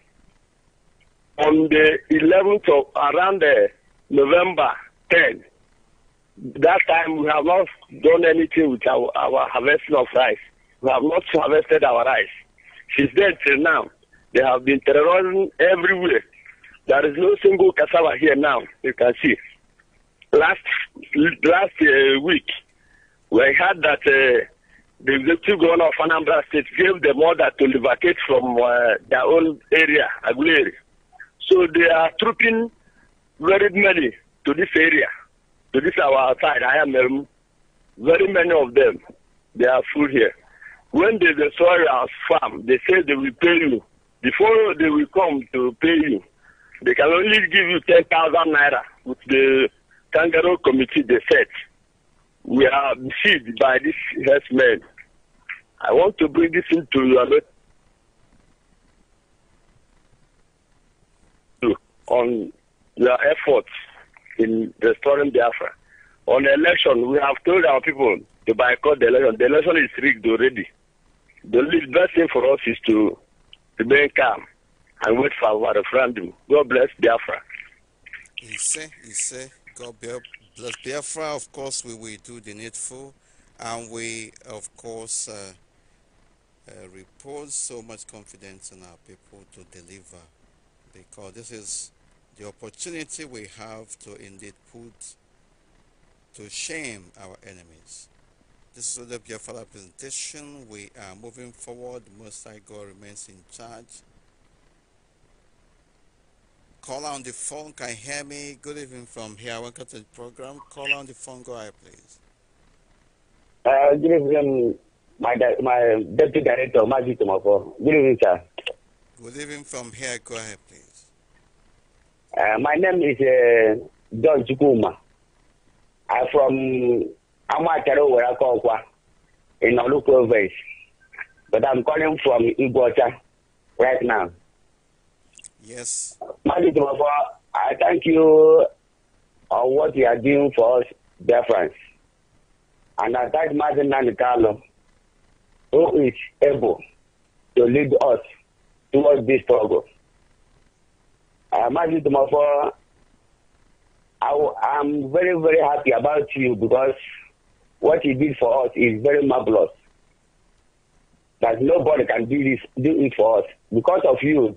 on the 11th of around the eh, November 10. That time we have not done anything with our, our harvesting of rice. We have not harvested our rice. Since then till now, they have been terrorizing everywhere. There is no single cassava here now, you can see. Last last uh, week, we heard that uh, the executive governor of Anambra State gave them order to evacuate from uh, their own area, Aguleri. So they are trooping very many to this area, to this our side. I am um, very many of them. They are full here. When they destroy our farm, they say they will pay you. Before they will come to pay you, they can only give you 10,000 naira with the kangaroo committee they set we are deceived by these herdsmen. I want to bring this into your on your efforts in restoring Biafra. On election, we have told our people to boycott the election. The election is rigged already. The best thing for us is to remain calm and wait for our referendum. God bless Biafra. He said, he said, God Plus Biafra, of course, we will do the needful, and we, of course, uh, uh, repose so much confidence in our people to deliver, because this is the opportunity we have to indeed put to shame our enemies. This is the Biafra presentation. We are moving forward. Most High God remains in charge. Caller on the phone, can hear me? Good evening from here. Welcome to the program. Caller on the phone, go ahead, please. Uh, good evening, my, my deputy director, Maji Tomoko. Good evening, sir. Good evening from here. Go ahead, please. Uh, my name is uh, John Chukuma. I'm from Amakaro, where I call in Olu province. But I'm calling from Iguacha right now. Yes. Madi Tumafo, I thank you on what you are doing for us, dear friends. And I thank Martin Nanikalo, who is able to lead us towards this struggle. Uh, Martin Tumafo, I, I'm very, very happy about you because what you did for us is very marvelous. That nobody can do this, do it for us. Because of you,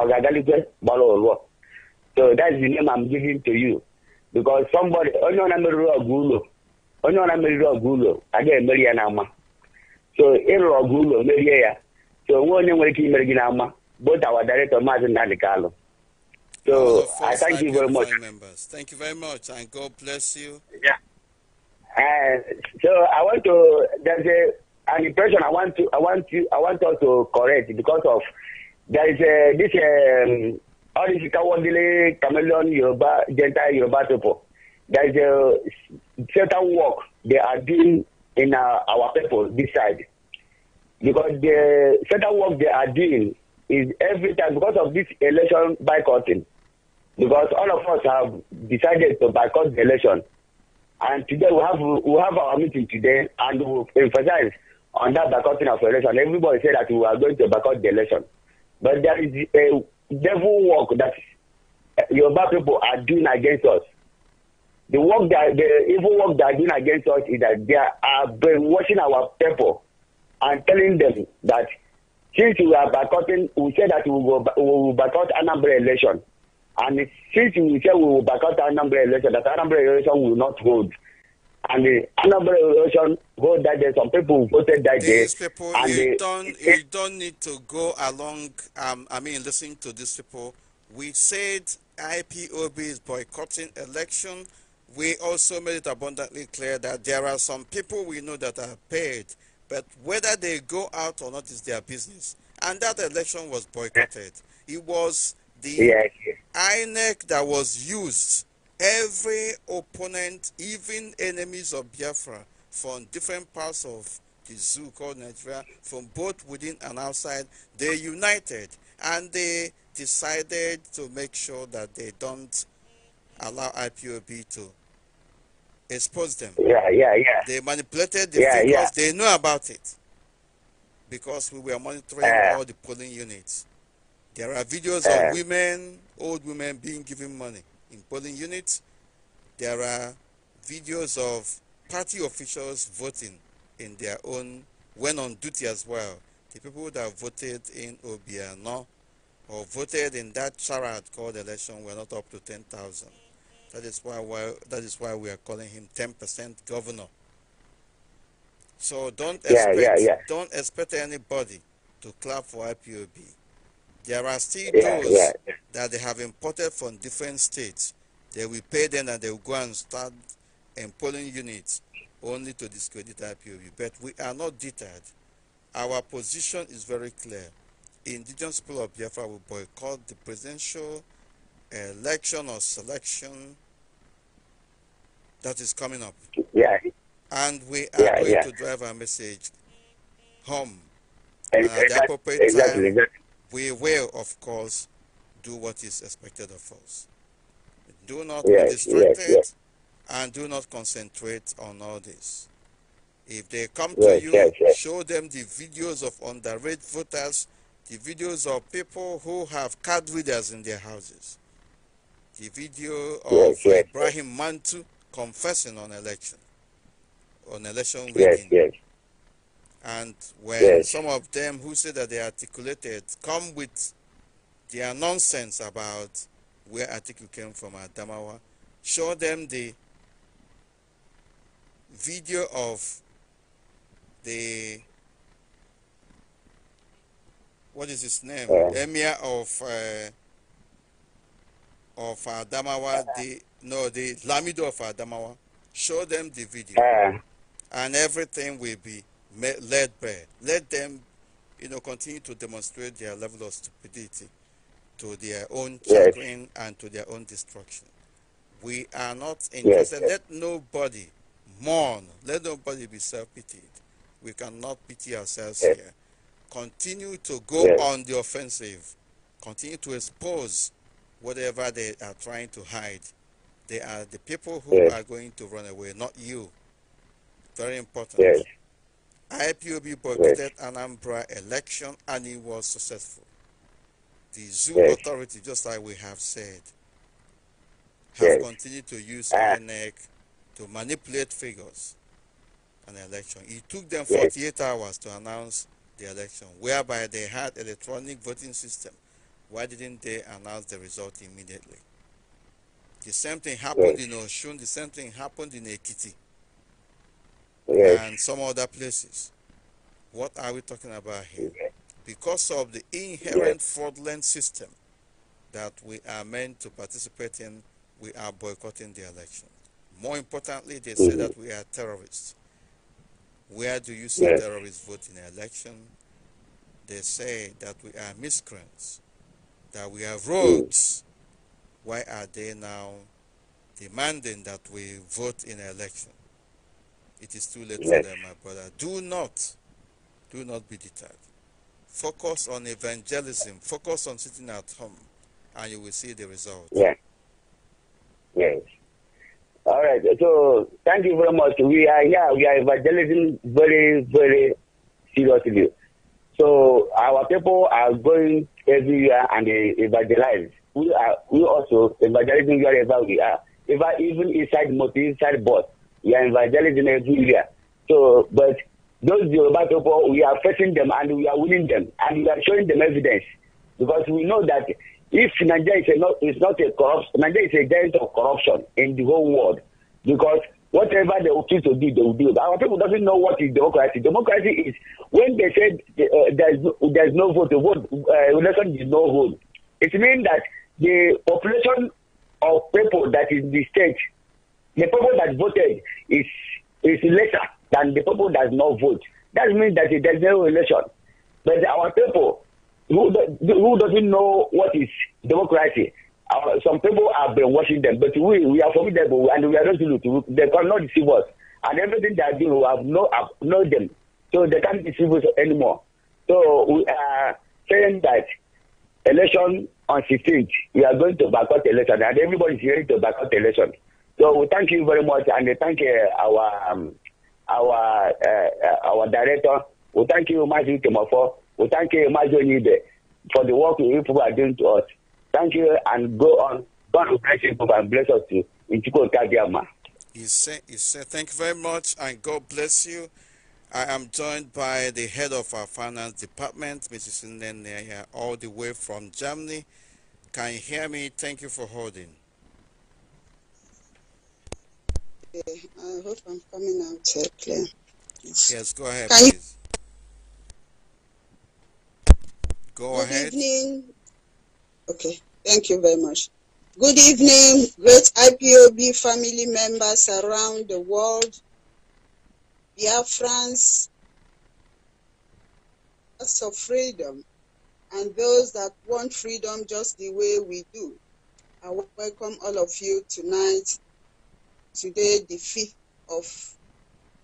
ọ ga-agalikwe gbara ụlọ so that's the name I'm giving to you because somebody onye ọna meriri ọgụ ụlọ onye ọna meriri ọgụ ụlọ agaghị emeri ya n'ama so ịrụrụ ọgụ ụlọ merie ya so onwe onye nwere ike imeri gị n'ama both our director maazị Nnamdi Kalụ so I thank you very much thank you very much and God bless you yeah. Uh, so I want to there's a, an impression I want to I want to I want us to correct because of there is uh, this um, all this Kawandele Chameleon Yoruba Gentile Yoruba people. There is a uh, certain work they are doing in uh, our people this side because the certain work they are doing is every time because of this election boycotting because all of us have decided to boycott the election and today we have we have our meeting today and we emphasize on that boycotting of election everybody say that we are going to boycott the election But there is a devil work that eh, Yoruba people are doing against us. The work that the evil work they are doing against us is that they are brainwashing our people and telling them that since we are boycotting, we say that we will, we will boycott Anambra election. And since we say we will boycott Anambra election, that Anambra election will not hold. and the Anambra election vote that day. Some people voted that these day. People, and you, don't, you don't need to go along, um, I mean, listen to these people. We said IPOB is boycotting election. We also made it abundantly clear that there are some people we know that are paid, but whether they go out or not is their business. And that election was boycotted. It was the yes. INEC that was used every opponent, even enemies of Biafra from different parts of the zoo called Nigeria, from both within and outside, they united and they decided to make sure that they don't allow IPOB to expose them. Yeah, yeah, yeah. They manipulated the yeah, figures. Yeah. They know about it because we were monitoring uh, all the polling units. There are videos uh, of women, old women, being given money in polling units. There are videos of party officials voting in their own, when on duty as well. The people that voted in Obiano or voted in that charade called election were not up to 10,000. That is why that is why we are calling him 10% governor. So don't expect yeah, yeah, yeah. don't expect anybody to clap for IPOB. There are still those that they have imported from different states. They will pay them and they will go and start employing units only to discredit IPOB. But we are not deterred. Our position is very clear. Indigenous people of Biafra will boycott the presidential election or selection that is coming up. Yeah. And we are yeah, going yeah. to drive our message home. at the appropriate exactly, time, exactly. we will, of course, do what is expected of us. Do not yes, be distracted yes, yes. and do not concentrate on all this. If they come to you, show them the videos of underage voters, the videos of people who have card readers in their houses, the video of Ibrahim Mantu confessing on election, on election Yes. And when some of them who say that they articulated come with their nonsense about where article came from Adamawa, show them the video of the what is his name yeah. emir of uh, of Adamawa the no the Lamido of Adamawa show them the video yeah. and everything will be laid bare let them you know continue to demonstrate their level of stupidity to their own chagrin yes. and to their own destruction. We are not interested. Yes. Let nobody mourn. Let nobody be self-pitied. We cannot pity ourselves yes. here. Continue to go on the offensive. Continue to expose whatever they are trying to hide. They are the people who are going to run away, not you. Very important. IPOB boycotted yes. Anambra election and it was successful the zoo yes. authority, just like we have said, have yes. continued to use ah. to manipulate figures an election. It took them 48 yes. hours to announce the election, whereby they had electronic voting system. Why didn't they announce the result immediately? The same thing happened yes. in Oshun. The same thing happened in Ekiti. Yes. And some other places. What are we talking about here? because of the inherent yes. fraudulent system that we are meant to participate in, we are boycotting the election. More importantly, they mm-hmm. say that we are terrorists. Where do you see yes. terrorists vote in an election? They say that we are miscreants, that we are mm. rogues. mm Why are they now demanding that we vote in an election? It is too late yes. for them, my brother. Do not, do not be deterred focus on evangelism, focus on sitting at home, and you will see the result. Yeah. Yes. All right. So thank you very much. We are here. we are evangelizing very, very seriously. So our people are going everywhere and they evangelize. We are we also evangelizing wherever we are. Even even inside motor, inside bus, we are evangelizing everywhere. So but those Yoruba people, we are facing them and we are winning them and we are showing them evidence because we know that if Nigeria is, not, is not a corrupt, Nigeria is a giant of corruption in the whole world because whatever they choose to do, they will do. our people doesn't know what is democracy. Democracy is when they say uh, there's no, there's no vote, the vote uh, election is no vote. It means that the population of people that is in the state, the people that voted is is lesser that the people does not vote. That means that there's no election. But our people who who doesn't know what is democracy. Our, some people have been watching them, but we we are formidable and we are resolute. They cannot deceive us, and everything they are we have no have know them, so they can't deceive us anymore. So we are saying that election on 16th, we are going to boycott election, and everybody is ready to boycott election. So we thank you very much, and thank uh, our. Um, our uh, uh, our director. We thank you, Major Timofo. We thank you, Major Onibe, for the work you people are doing to us. Thank you, and go on. God bless you and bless us too. In Chukwu He said, he said, thank you very much, and God bless you. I am joined by the head of our finance department, Mrs. Ndenea, all the way from Germany. Can you hear me? Thank you for holding. Okay, I hope I'm coming out uh, clear. Yes. go ahead, Can please. You... Go Good ahead. Good evening. Okay, thank you very much. Good evening, great IPOB family members around the world, dear France, us of freedom, and those that want freedom just the way we do. I welcome all of you tonight today, the 5th of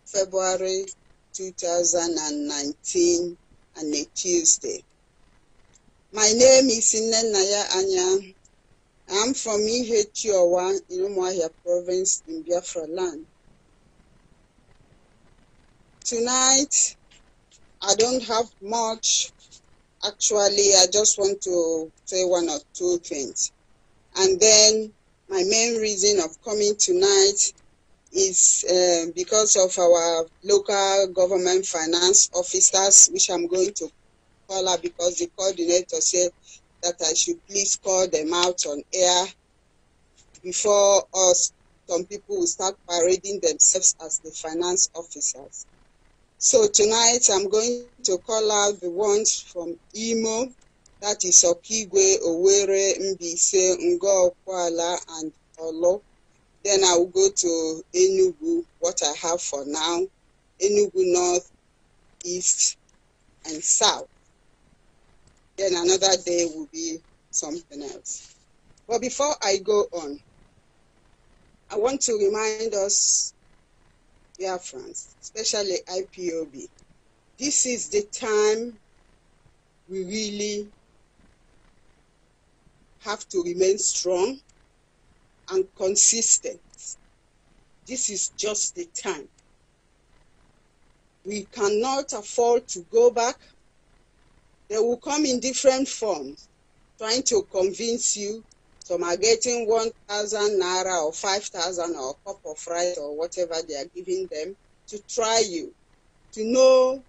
February 2019, and a Tuesday. My name is Nnenaya Anya. I'm from Ihechiowa in Umuahia province in Biafra land. Tonight, I don't have much. Actually, I just want to say one or two things. And then my main reason of coming tonight is uh, because of our local government finance officers, which I'm going to call her because the coordinator said that I should please call them out on air before us. Some people will start parading themselves as the finance officers. So tonight I'm going to call out the ones from Imo, that is Okigwe, Owerri, Mbise, Ngo, Kuala, and Olo. Then I will go to Enugu, what I have for now, Enugu North, East, and South. Then another day will be something else. But before I go on, I want to remind us, dear friends, especially IPOB, this is the time we really have to remain strong and consistent. This is just the time. We cannot afford to go back. They will come in different forms, trying to convince you. Some are getting 1,000 naira or 5,000 or a cup of rice or whatever they are giving them to try you, to know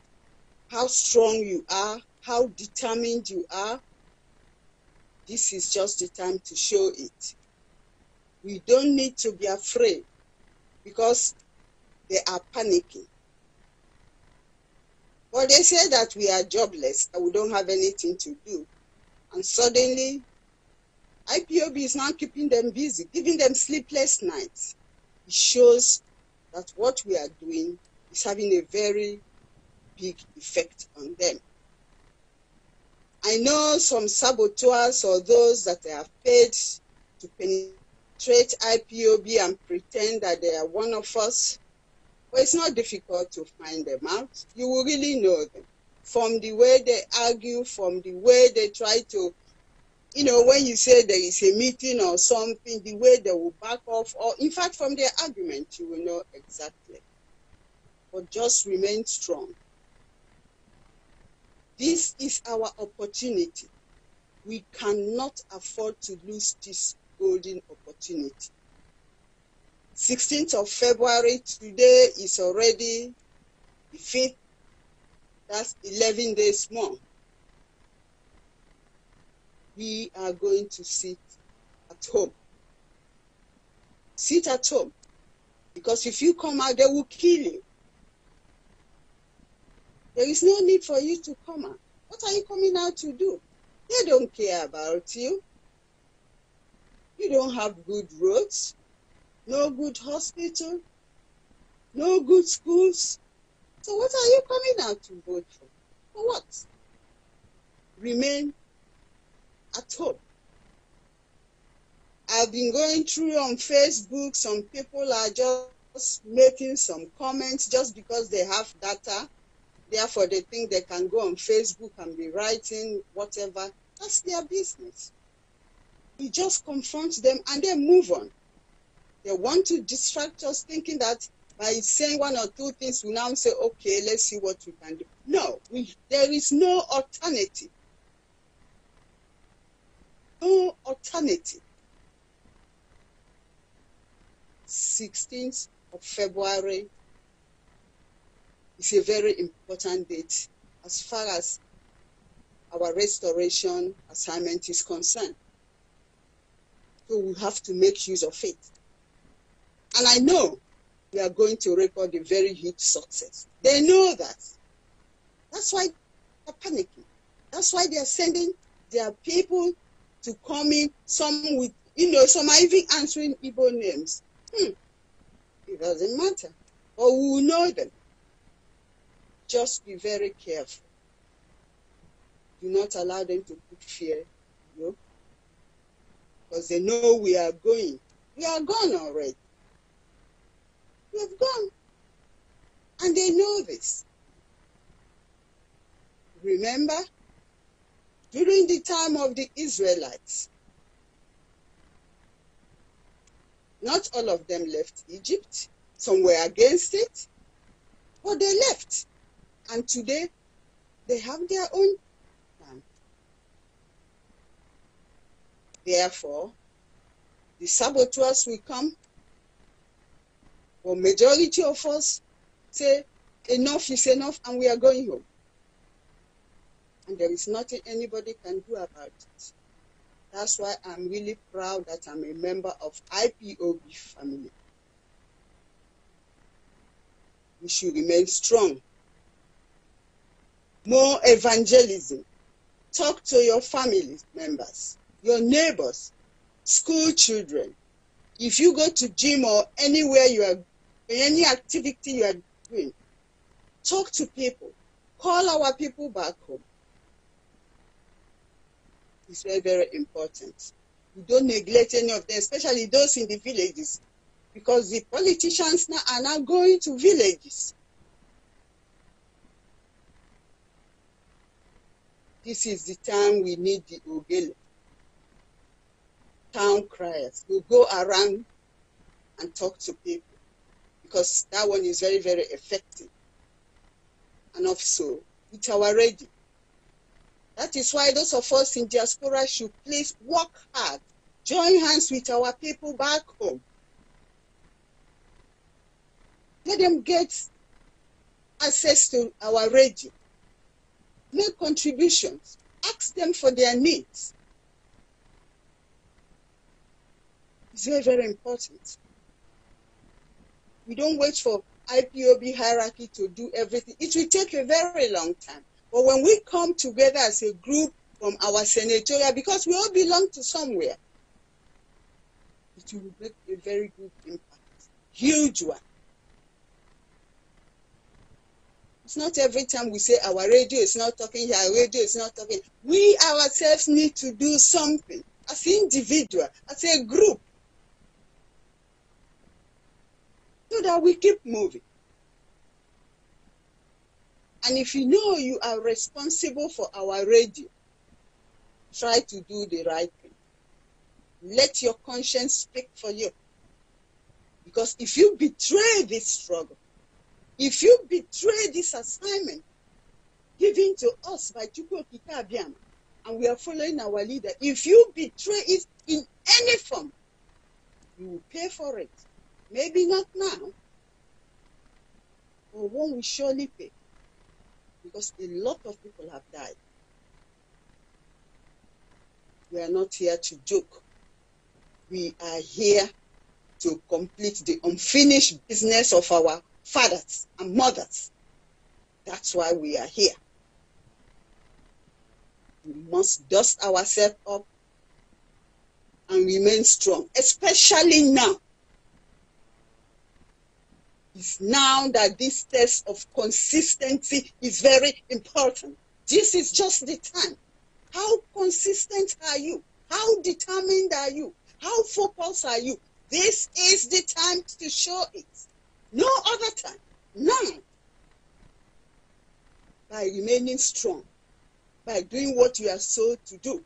how strong you are, how determined you are, this is just the time to show it. We don't need to be afraid because they are panicking. Well, they say that we are jobless, that we don't have anything to do. And suddenly, IPOB is now keeping them busy, giving them sleepless nights. It shows that what we are doing is having a very big effect on them. I know some saboteurs or those that have paid to penetrate IPOB and pretend that they are one of us. Well, it's not difficult to find them out. You will really know them from the way they argue, from the way they try to, you know, when you say there is a meeting or something, the way they will back off, or in fact, from their argument, you will know exactly. But just remain strong. This is our opportunity. We cannot afford to lose this golden opportunity. 16th of February, today is already the 5th. That's 11 days more. We are going to sit at home. Sit at home. Because if you come out, they will kill you. There is no need for you to come out. What are you coming out to do? They don't care about you. You don't have good roads, no good hospital, no good schools. So what are you coming out to vote for? For what? Remain at home. I've been going through on Facebook, some people are just making some comments just because they have data Therefore, they think they can go on Facebook and be writing whatever. That's their business. We just confront them and then move on. They want to distract us thinking that by saying one or two things, we now say, okay, let's see what we can do. No, we, there is no alternative. No alternative. 16th of February is a very important date as far as our restoration assignment is concerned. So we have to make use of it. And I know we are going to record a very huge success. They know that. That's why they're panicking. That's why they're sending their people to come in, some with, you know, some are even answering Igbo names. Hmm. It doesn't matter. Or we will know them. Just be very careful. Do not allow them to put fear, you know, because they know we are going. We are gone already. We have gone. And they know this. Remember, during the time of the Israelites, not all of them left Egypt. Some were against it, but they left. And today, they have their own plan. Therefore, the saboteurs will come. But majority of us say, enough is enough, and we are going home. And there is nothing anybody can do about it. That's why I'm really proud that I'm a member of IPOB family. We should remain strong more evangelism. Talk to your family members, your neighbors, school children. If you go to gym or anywhere you are, any activity you are doing, talk to people. Call our people back home. It's very, very important. You don't neglect any of them, especially those in the villages, because the politicians now are now going to villages This is the time we need the Ogele, town criers, to go around and talk to people because that one is very, very effective. And also, it's our radio. That is why those of us in diaspora should please work hard, join hands with our people back home. Let them get access to our radio make contributions, ask them for their needs. It's very, very important. We don't wait for IPOB hierarchy to do everything. It will take a very long time. But when we come together as a group from our senatorial, because we all belong to somewhere, it will make a very good impact. Huge one. It's not every time we say our radio is not talking our radio is not talking. We ourselves need to do something as individual, as a group, so that we keep moving. And if you know you are responsible for our radio, try to do the right thing. Let your conscience speak for you. Because if you betray this struggle, if you betray this assignment given to us by Chukwu Kitabiam, and we are following our leader, if you betray it in any form, you will pay for it. Maybe not now, but one will surely pay. Because a lot of people have died. We are not here to joke. We are here to complete the unfinished business of our fathers and mothers. That's why we are here. We must dust ourselves up and remain strong, especially now. It's now that this test of consistency is very important. This is just the time. How consistent are you? How determined are you? How focused are you? This is the time to show it. No other time. None. By remaining strong, by doing what you are sold to do.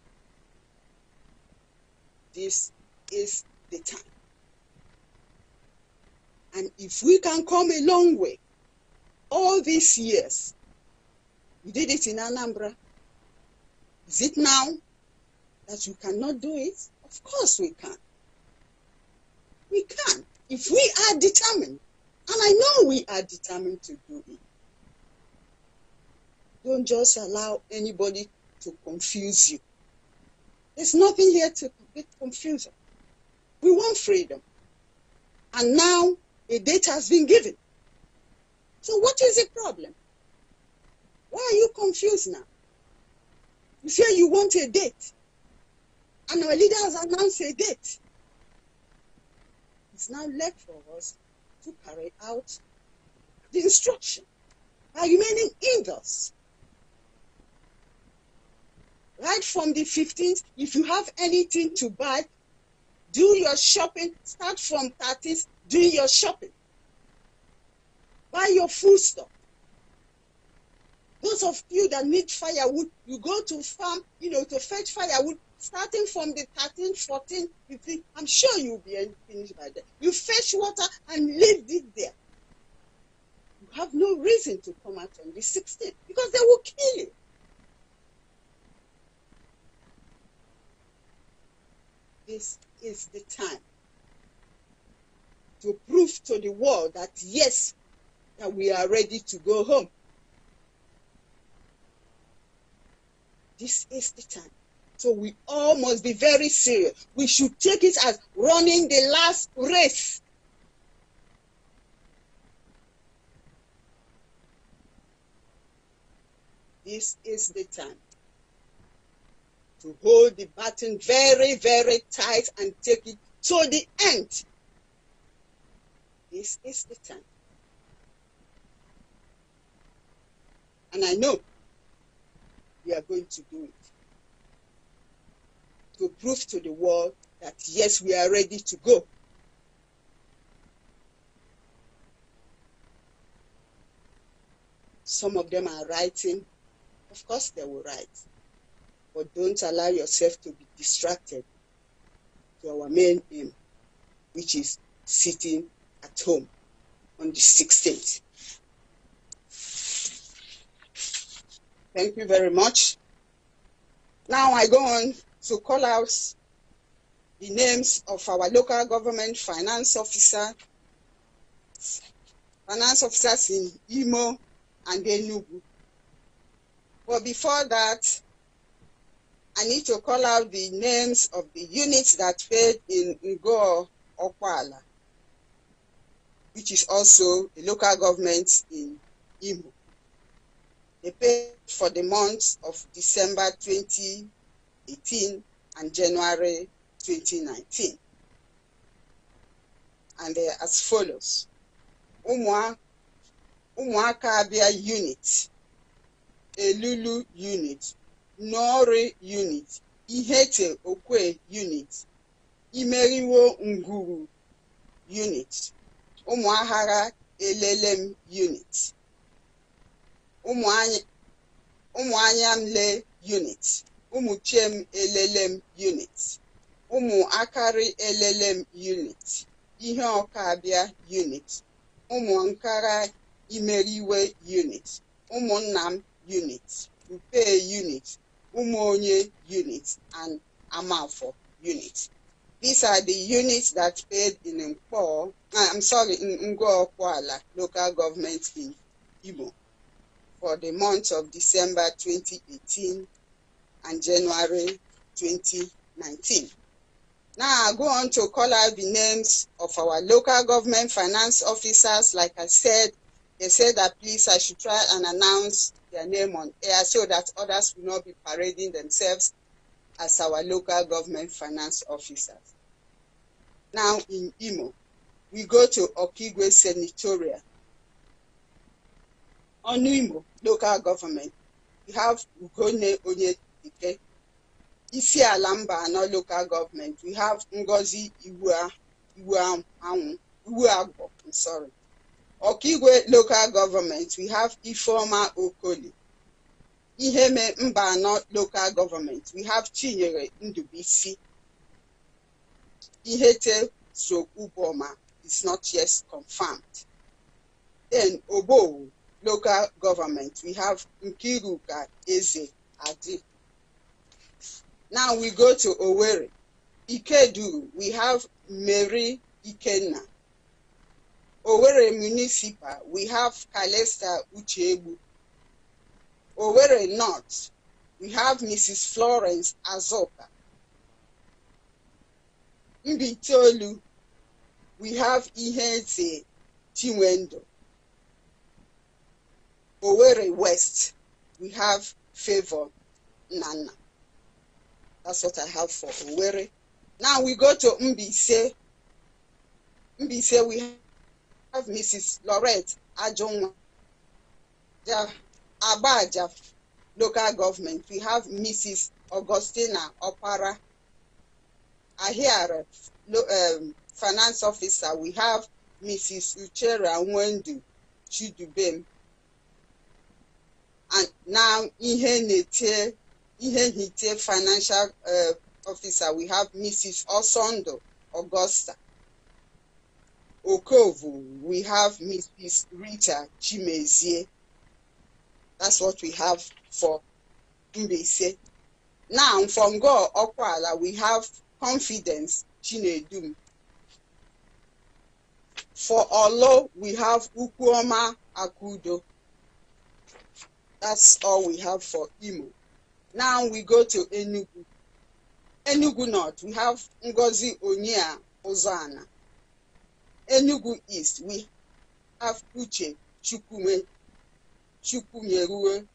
This is the time. And if we can come a long way, all these years, you did it in Anambra. Is it now that you cannot do it? Of course we can. We can. If we are determined, and I know we are determined to do it. Don't just allow anybody to confuse you. There's nothing here to get confused. We want freedom. And now a date has been given. So what is the problem? Why are you confused now? You say you want a date. And our leader has announced a date. It's now left for us to carry out the instruction by remaining indoors. Right from the 15th, if you have anything to buy, do your shopping. Start from 30th, do your shopping. Buy your food stuff. Those of you that need firewood, you go to farm, you know, to fetch firewood starting from the 13, 14, 15, I'm sure you'll be finished by then. You fetch water and leave it there. You have no reason to come out on the 16th because they will kill you. This is the time to prove to the world that yes, that we are ready to go home. This is the time. So we all must be very serious. We should take it as running the last race. This is the time to hold the baton very, very tight and take it to the end. This is the time. And I know we are going to do it to prove to the world that yes, we are ready to go. Some of them are writing. Of course, they will write. But don't allow yourself to be distracted to our main aim, which is sitting at home on the 16th. Thank you very much. Now I go on to call out the names of our local government finance officer, finance officers in Imo and Enugu. But before that, I need to call out the names of the units that failed in Ngo Okwala, which is also a local government in Imo. They paid for the month of December 2020. 18 and January 2019. And they are as follows. Ụmụaka Abia unit, Elulu unit, Nori unit, Ihete Okwe unit, Imeriwo Nguru unit, Ụmụahara Elelem unit, Ụmụanyamle unit, ụmụ elelem unit ụmụ akarị elelem unit ihe ọkabịa unit ụmụ nkara imeriwe unit ụmụnna m unit upe unit ụmụ onye unit and amafọ unit These are the units that paid in Mkpo, ah, I'm sorry, in ala local government in Igbo, for the month of December 2018 and January 2019. Now I go on to call out the names of our local government finance officers. Like I said, they said that please I should try and announce their name on air so that others will not be parading themselves as our local government finance officers. Now in Imo, we go to Okigwe Senatorial. On Imo local government, we have Ugone Onye Ike isi ala mba anọ lokal gọọmenti we have Ngozi Iweagbo sorry Ọkaigwe local government we have Ifeoma Okoli Iheme mba anọ local government we have Chinyere Ndubuisi Ihete Sokwuboma is not yet confirmed then Obowo local government we have Nkiruka Eze Adi Now we go to Owerri. Ikedu, we have Mary Ikenna. Owerri Municipal, we have Kalesta Uchebu. Owerri North, we have Mrs. Florence Azoka. Mbitolu, we have Ihenze Chinwendo. Owerri West, we have Favor Nana. That's what I have for Uwere. Now we go to Mbise. Mbise, we have Mrs. Lorette Ajonwa, Abaja, local government. We have Mrs. Augustina Opara, Ahiara, um, finance officer. We have Mrs. Uchera Wendu Chidubem. And now, Ihe ihe financial uh, officer we have mrs osondo augusta okovu we have mrs rita chimezie that's what we have for mbese now from go okwala we have confidence chinedum for Olo, we have Ukuoma Akudo. That's all we have for Imo. Now we go to Enugu. Enugu North, we have Ngozi Onia Ozana. Enugu East, we have Uche Chukume Chukwumerue.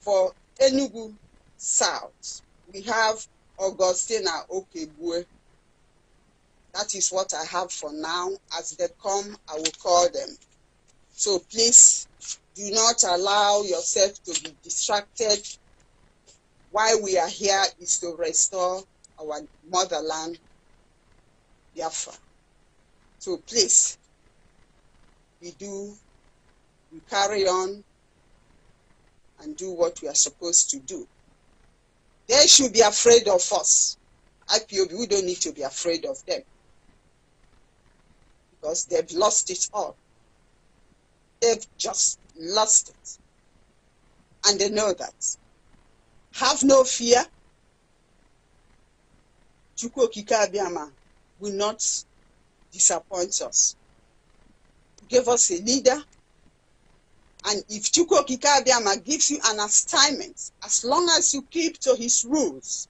For Enugu South, we have Augustina Okebue. That is what I have for now. As they come, I will call them. So please do not allow yourself to be distracted. Why we are here is to restore our motherland, Biafra. So please, we do, we carry on and do what we are supposed to do. They should be afraid of us. IPOB, we don't need to be afraid of them because they've lost it all. They've just lost it. And they know that. Have no fear. Chukwu Abiyama will not disappoint us. Give us a leader. And if Chukwu Abiyama gives you an assignment, as long as you keep to his rules,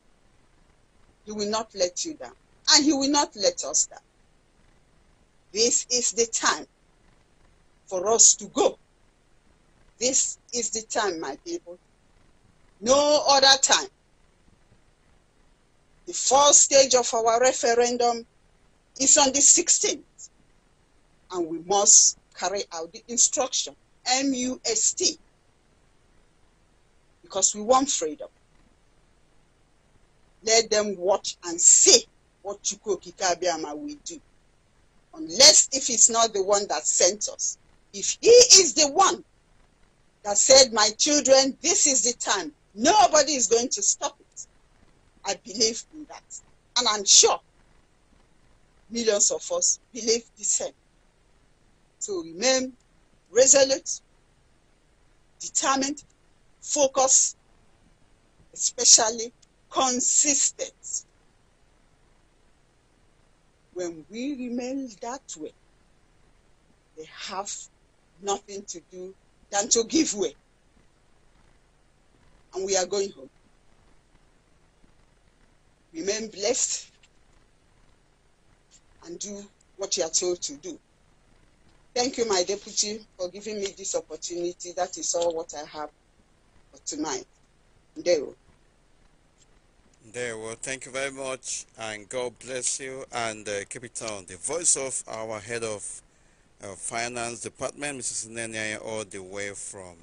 he will not let you down. And he will not let us down. This is the time for us to go this is the time, my people. No other time. The fourth stage of our referendum is on the 16th, and we must carry out the instruction MUST because we want freedom. Let them watch and see what Chukwu Kabiama will do. Unless if it's not the one that sent us. If he is the one that said, My children, this is the time. Nobody is going to stop it. I believe in that. And I'm sure millions of us believe the same. To remain resolute, determined, focused, especially consistent. When we remain that way, they have nothing to do than to give way. And we are going home. Remain blessed and do what you are told to do. Thank you, my deputy, for giving me this opportunity. That is all what I have for tonight. Ndero. There, well, thank you very much, and God bless you, and uh, keep it on. The voice of our head of uh, finance department, Mrs. Nenyaya, all the way from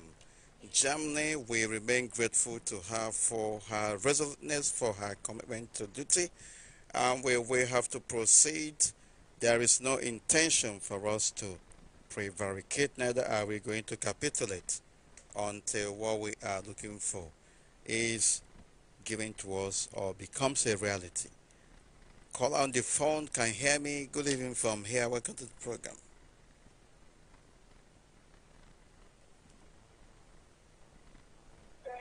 Germany. We remain grateful to her for her resoluteness, for her commitment to duty, and we have to proceed. There is no intention for us to prevaricate, neither are we going to capitulate until what we are looking for is given to us or becomes a reality. Call on the phone, can hear me. Good evening from here. Welcome to the program.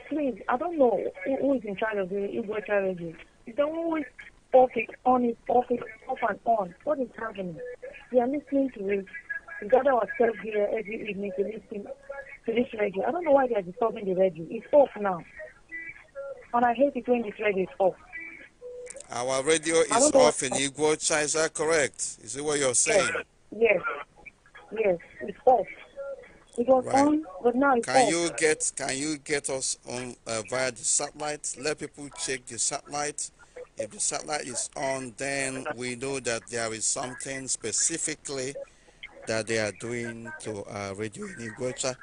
please, I don't know who, who is in charge of the Igbo child not always off it, on it, off it, off and on. What is happening? We are listening to it. We gather ourselves here every evening to listen to this radio. I don't know why they are disturbing the radio. It's off now. And I hate it when this radio is off. Our radio is off in Igbo Chai, is that correct? Is it what you're saying? Yes, yes, yes. it's off. It was right. on, but now it's Can off. you get Can you get us on uh, via the satellite? Let people check the satellite. If the satellite is on, then we know that there is something specifically that they are doing to uh, Radio Inigwecha.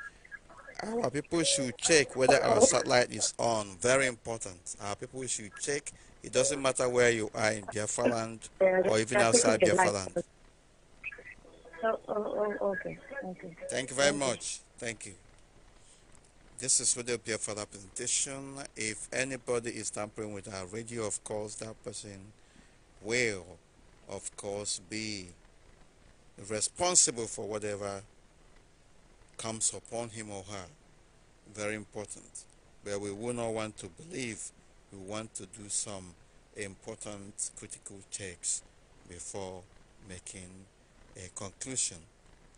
Our people should check whether our satellite is on. Very important. Our people should check. It doesn't matter where you are in Biafra land or even outside Biafra land. Oh, oh, oh, okay. okay. Thank you very Thank much. You. Thank you. This is Radio Pierre for the presentation. If anybody is tampering with our radio, of course, that person will, of course, be responsible for whatever comes upon him or her. Very important. But we will not want to believe. We want to do some important critical checks before making a conclusion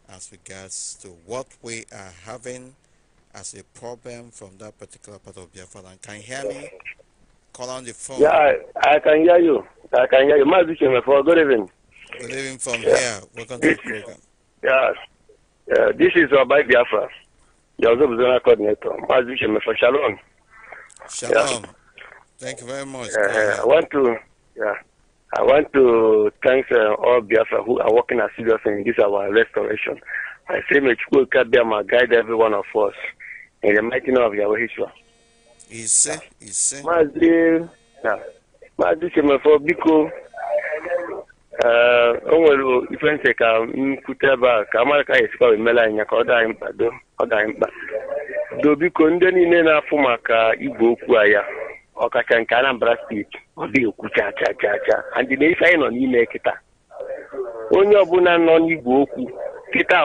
as regards to what we are having as a problem from that particular part of Biafra land. Can you hear me? Call on the phone. Yeah, I, I can hear you. I can hear you. My for good evening. Good evening from yeah. here. Welcome this, to the program. Yeah, yeah this is Rabbi Biafra, your Zona coordinator. My for Shalom. Shalom. Yeah. Thank you very much. Uh, I want to, yeah. I want to thank uh, all Biafra who are working assiduously in this our restoration. I say may Chukwu Kabiama guide every one of us in the mighty name of Yahweh Yeshua. Ise, ise. Maazị na Maazị Chemefo biko uh, o nwere ife ntị ka m kwute ebe ka amara ka esikwa emela ka ọ dị do ọ dị mkpa do biko ndị niile na-afụ maka igwe okwu a ọkacha nke Anambra steeti ọ dị ekwu cha cha cha cha and na nọ n'ime kịta onye ọbụla nọ n'igwe okwu kịta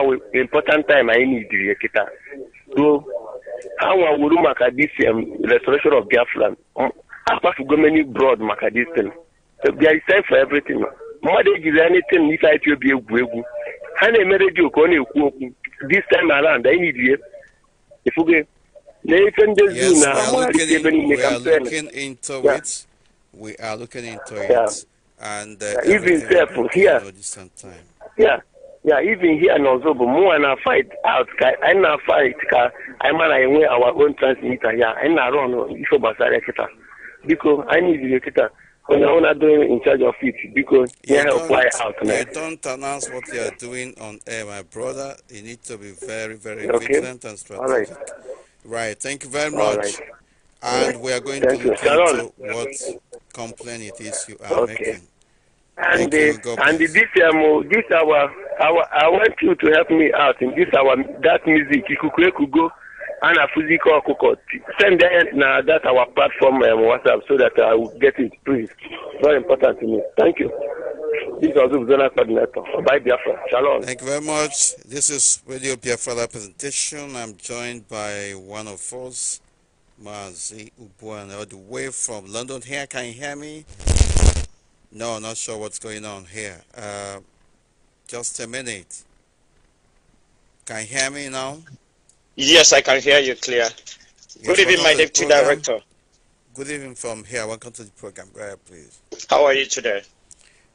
important time anyị ruo ha maka DCM um, restoration of maka distin ejiri n'ife anyị egwu egwu ha na-eme redio ka na-ekwu okwu They just e yes, now. We are looking, e in, we are looking into yeah. it. We are looking into it. Yeah. And uh, yeah, even careful here. Yeah. Yeah, even here in Ozobo, more and I fight out, and I fight, I man, I wear our own transmitter, yeah, I'm I run, uh, if Basara Kita. Because I need the Kita. When I'm not doing in charge of it, because you yeah, help fly out. You don't announce what you are doing on air, my brother. You need to be very, very okay. vigilant and strategic. All right. Right. Thank you very much. Right. And we are going Thank to look into what complaint it is you are okay. making. And Thank you, and the, this um, this hour, our I want you to help me out in this hour. that music could go and a physical cookot. Send that now that our platform um, WhatsApp so that I will get it, please. Very important to me. Thank you. This is Zona Coordinator. Bye, Biafra. Shalom. Thank you very much. This is Radio Biafra presentation. I'm joined by one of us, Mazi Ubuan, all the way from London. Here, can you hear me? No, not sure what's going on here. Uh, just a minute. Can you hear me now? Yes, I can hear you clear. Yes, Good evening, my deputy director. Good evening from here. Welcome to the program. Go ahead, please. How are you today?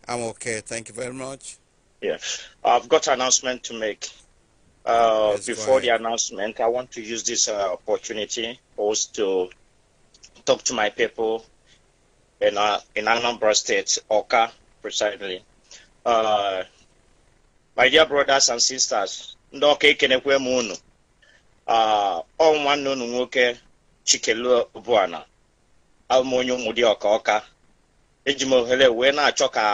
I'm okay. Thank you very much. Yeah, I've got an announcement to make. Uh, yes, before the announcement, I want to use this uh, opportunity also to talk to my people in uh, in Anambra State, Oka, precisely. Uh, my dear brothers and sisters, ndị ọka Ah, ọ nwanne unu nwoke chikelu bụana alụmonye ụmụdị ọka ọka eji m ohere wee na-achọ ka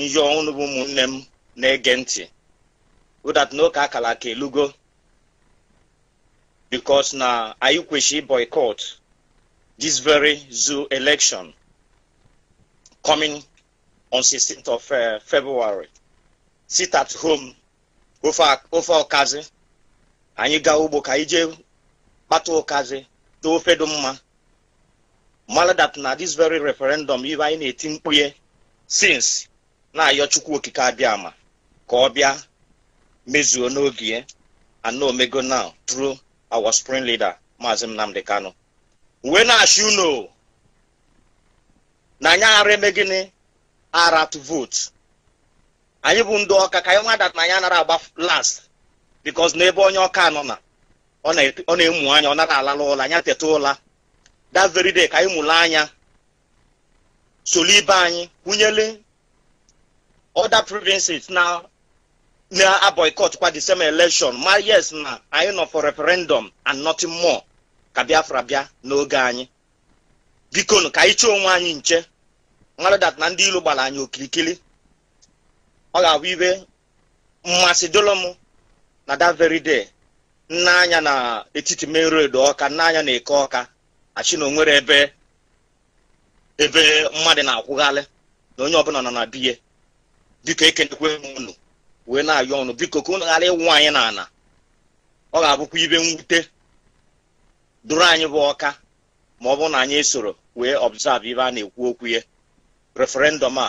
njọ ọnụ bụ ụmụnne m na-ege ntị ụdat n'oke akara ka elugo bikos na anyị kwesịrị boycott this very zoo election coming on 16th of uh, February sit at home ofe ọkazi anyị gaa ugbo ka anyị jee kpata ụkazi ofe dị mma maladat that na this very referendum ibe anyị na-eti mkpu sins na-ayọ chukwu okike abịa ama ka ọ bịa mezuo n'oge and ana omego now through our spring leader maazị Nnamdi Kanu wee na-achị na anyị ara eme ara to vote anyị bụ ndị ọka ka anyị na anyị anara agba last na ebe onye ọka nọ na ọ na-emu anya ọ nara alala ụla anya teta ụla that very ka anyị mụrụ anya solu ibe anyị kwunyele other provinces na na boycott kwa the same election ma yes na anyị nọ for referendum and nothing more ka Biafra bịa n'oge anyị bikonu ka anyị chọọ onwe anyị nche naradat na ndị ilu gbara anyị okirikiri ọ ga-abụ ibe mmasị dolo na that very day nna anya na etiti main road ọka nna anya na eke ọka achị na onwere ebe ebe mmadụ na-akwụghalị na onye ọbụla nọ na biye biko ekenekwe unu wee na-ayọ ọnụ biko ka unu ghara ịwụ anyị n'ala ọ ga-abụkwa ibe mwute duru anyị bụ ọka ma ọ bụrụ na anyị soro wee observe ibe a na-ekwu okwu ya referendum a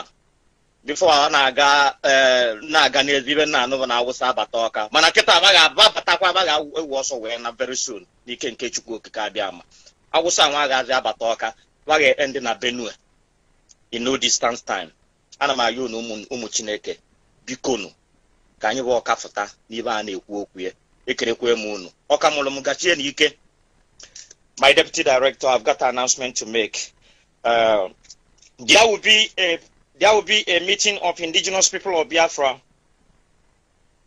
before ọ na-aga eh, na-aga n'ezi ibe nna anụba na awụsa abata ọka mana nkịta abaghị abatakwa abaghị ewu ọsọ wee na very soon n'ike nke chukwu okike abịa ama awụsa nwa agaghị abata ọka abaghị ndị na benue in no distance time ana m ayọ unu ụmụ chineke bikonu ka anyị bụ ọka fụta n'ibe a na-ekwu okwu ya ekerekwe m unu ọka mụrụ m gachie ike. my deputy director i've got an announcement to make uh, there will be a there will be a meeting of indigenous people of Biafra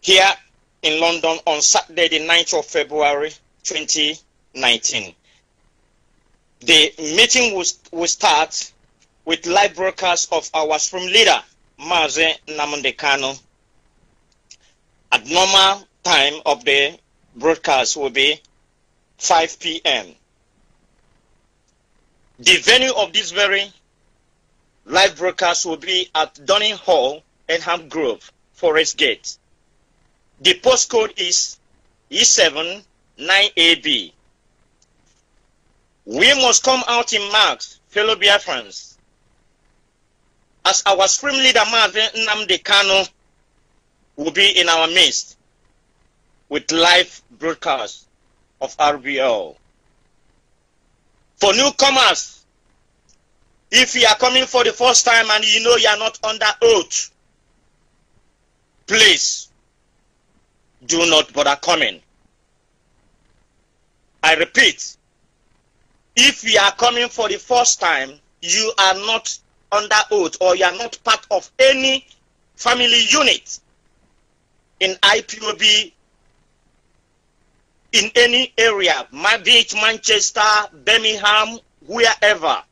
here in London on Saturday, the 9th of February 2019. The meeting will, will start with live broadcast of our Supreme Leader, Maze Namondekano. At normal time of the broadcast will be 5 p.m. The venue of this very Live broadcast will be at Dunning Hall, Enham Grove, Forest Gate. The postcode is E79AB. We must come out in marks, fellow Biafrans. As our supreme leader Marvin Nnamdi Kano will be in our midst with live broadcast of RBL. For newcomers, if you are coming for the first time and you know you are not under oath, please do not bother coming. I repeat, if you are coming for the first time, you are not under oath or you are not part of any family unit in IPOB in any area, be it Manchester, Birmingham, wherever.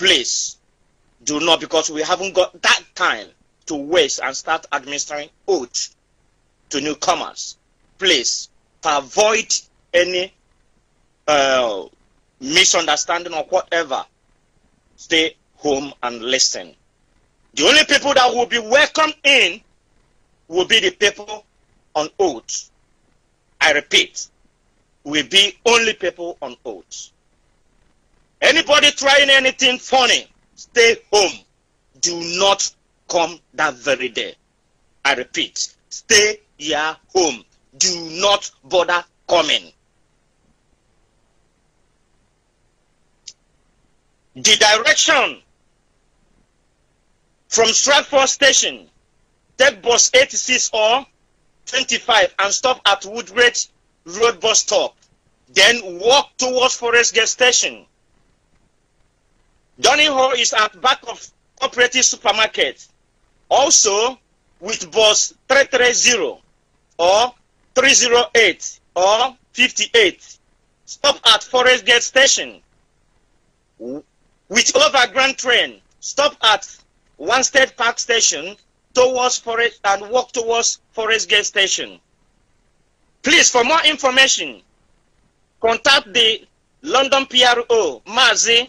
Please do not, because we haven't got that time to waste and start administering oath to newcomers. Please, to avoid any uh, misunderstanding or whatever, stay home and listen. The only people that will be welcomed in will be the people on oath. I repeat, will be only people on oath. Anybody trying anything funny, stay home. Do not come that very day. I repeat, stay your home. Do not bother coming. The direction from Stratford Station, take bus 86 or 25 and stop at Woodbridge Road bus stop. Then walk towards Forest Gate Station. Donnyho is at back of cooperative supermarket. Also with bus 330 or 308 or 58. Stop at Forest Gate Station. With overground train, stop at One State Park Station towards Forest and walk towards Forest Gate Station. Please, for more information, contact the London PRO, Mazi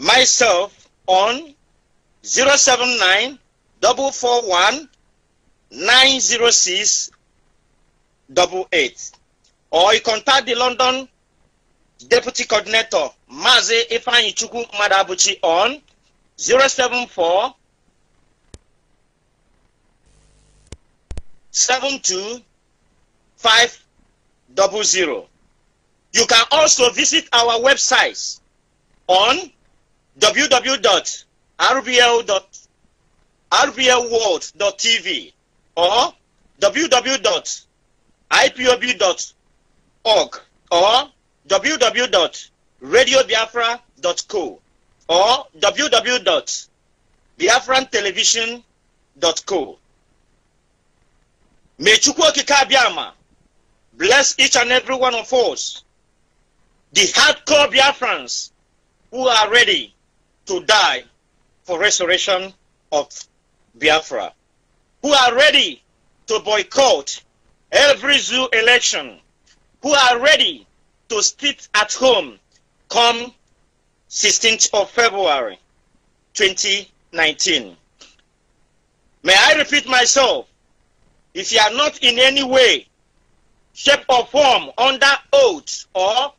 myself on 079 441 906 88 or you contact the London Deputy Coordinator Maze Ifanichuku Madabuchi on 074 double 72500. You can also visit our websites on www.rblworld.tv or www.ipob.org or www.radiobiafra.co or www.biafrantelevision.co. May Chukwokika Biama bless each and every one of us, the hardcore Biafrans who are ready to die for restoration of Biafra, who are ready to boycott every zoo election, who are ready to sit at home come 16th of February 2019. May I repeat myself, if you are not in any way, shape or form under oath or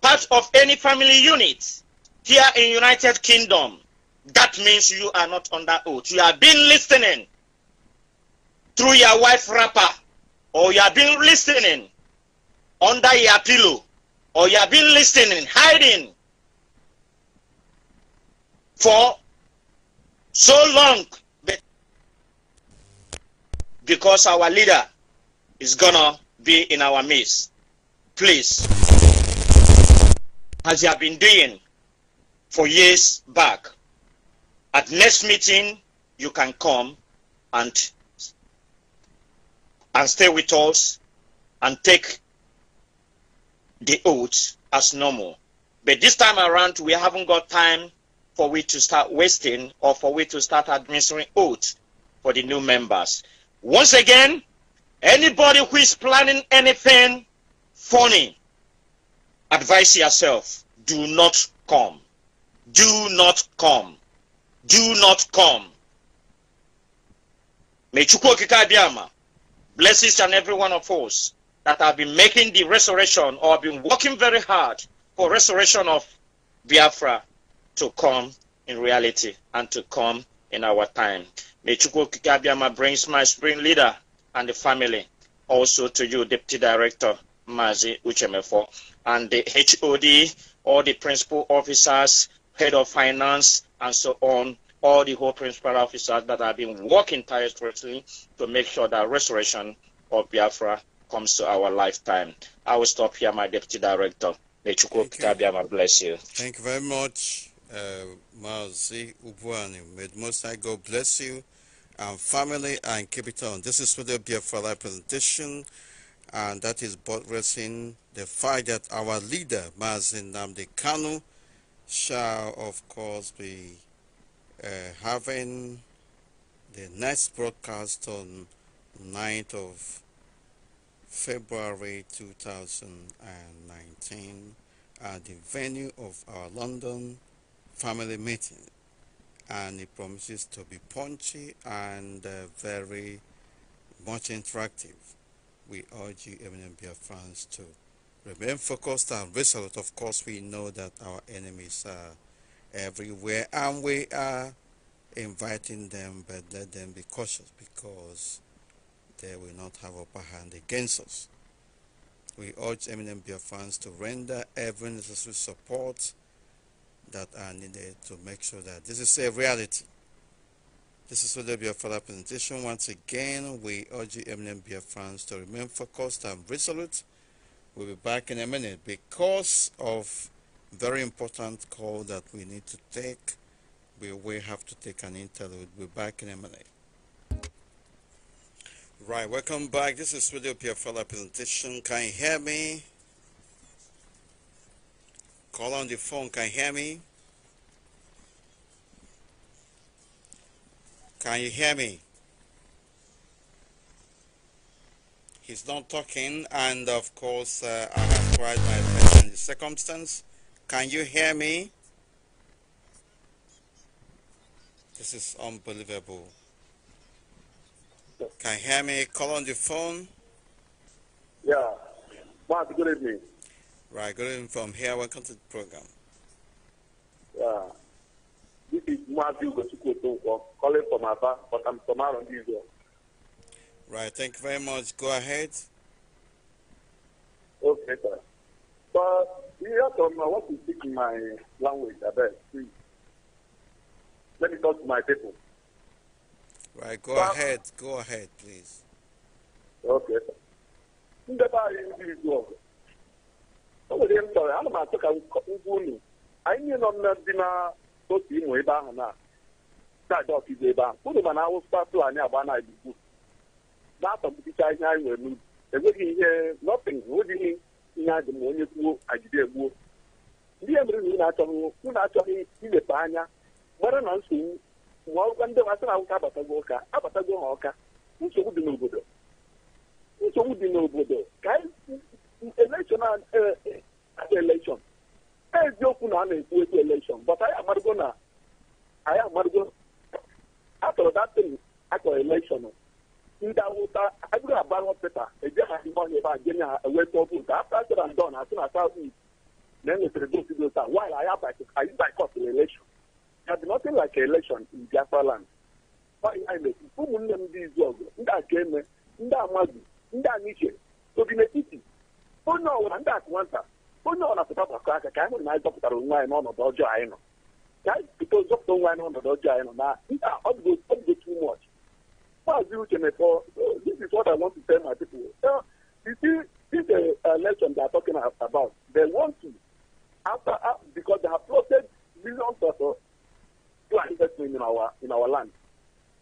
part of any family unit, here in United Kingdom, that means you are not under oath. You have been listening through your wife wrapper, or you have been listening under your pillow, or you have been listening, hiding for so long because our leader is gonna be in our midst. Please, as you have been doing for years back. At next meeting, you can come and and stay with us and take the oath as normal. But this time around, we haven't got time for we to start wasting or for we to start administering oath for the new members. Once again, anybody who is planning anything funny, advise yourself, do not come. Do not come. Do not come. May Chukwokika Abiyama bless each and every one of us that have been making the resurrection or have been working very hard for resurrection of Biafra to come in reality and to come in our time. May Chukwokika Abiyama brings my spring leader and the family also to you, Deputy Director Mazi Uchemefo, and the HOD, all the principal officers, head of finance, and so on, all the whole principal officers that have been working tirelessly to make sure that restoration of Biafra comes to our lifetime. I will stop here, my deputy director. May Chukwu bless you. Thank you very much, uh, Mazi Ubwani. May Most High God bless you and family and keep it on. This is for the Biafra presentation, and that is buttressing the fact that our leader, Mazin Namdi Kanu, shall of course be uh, having the next broadcast on 9th of February 2019 at the venue of our London family meeting and it promises to be punchy and uh, very much interactive. We urge you, Eminem Biafrans, to Remain focused and resolute. Of course, we know that our enemies are everywhere and we are inviting them, but let them be cautious because they will not have upper hand against us. We urge eminent fans to render every necessary support that are needed to make sure that this is a reality. This is Wode our presentation. Once again, we urge eminent fans to remain focused and resolute We'll be back in a minute because of very important call that we need to take. We will have to take an interlude. We'll be back in a minute. Right, welcome back. This is Radio Piafala presentation. Can you hear me? Call on the phone. Can you hear me? Can you hear me? he's not talking and of course uh, I have tried my best in the circumstance. Can you hear me? This is unbelievable. Can you hear me? Call on the phone. Yeah. Mark, good evening. Right, good evening from here. Welcome to the program. Yeah. This is Matthew Gosukoto calling from Aba, but I'm from around Israel. Right. Thank you very much. Go ahead. Okay, sir. But you have to know what you speak in my language, I bet. Please. Let me talk to my people. Right, go but, ahead. Go ahead, please. Okay, sir. ndị ebe ahụ ahụ na-atọgbuicha ihe anyị nwere n'ubi enweghị ihe nọtin ụdịghị ihe adị ma onye gbuo agide egbuo ndị e mere na unu achọghị unu achọghị anya gbara na nsogbu ma ọgụkwa ndị asị na awụka abatago ụka abatago ha ọka nsogbu dị n'obodo nsogbu dị n'obodo ka eziokwu na a na-ekwu ekwu anyị na anyị atọrọ akọ elekshọn ndị awụsa a bụghị agbara ọpịta e ọhịa ebe a jenye ha eweta ọkụ nke afta sera don asị na saut east na enwetara votu dị ụta wail aya anyị na elekshon ya dị nothing like elekshon in biafra land ụmụnne m ndị izu ọgụ ndị eme, ndị amazi ndị aniche obi n'etiti onye ọwụra ndị akụ nwata onye ọwụra gbakọ aka ka anyị na zọpụtara onwe anyị n'ọnọdụ ọjọọ anyị nọ ka anyị anyị nọ na ọ Uh, this is what I want to tell my people. Uh, you see, this uh, election they are talking about, they want to, after uh, because they have plotted millions of uh, to in our in our land.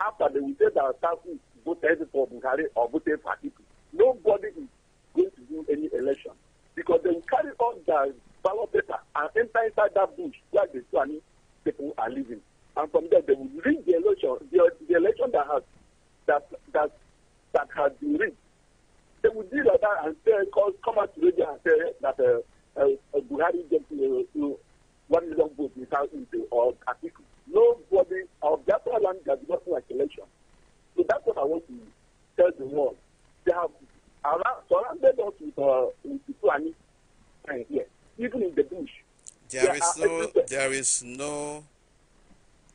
After they will say that Taku voted for Bukhari or voted for people. nobody is going to do any election because they will carry on their ballot paper and enter inside that bush where the Fulani people are living. And from there, they will read the election, the, the election that has that that that has been reached. They would deal at that and say, "Cause come out to radio and say that uh, uh, uh Buhari gets uh, uh, one million votes without into or article. Nobody of that land does not like election. So that's what I want to tell the world. They have around, surrounded us with uh, with people and friends here, even in the bush. there is no there is no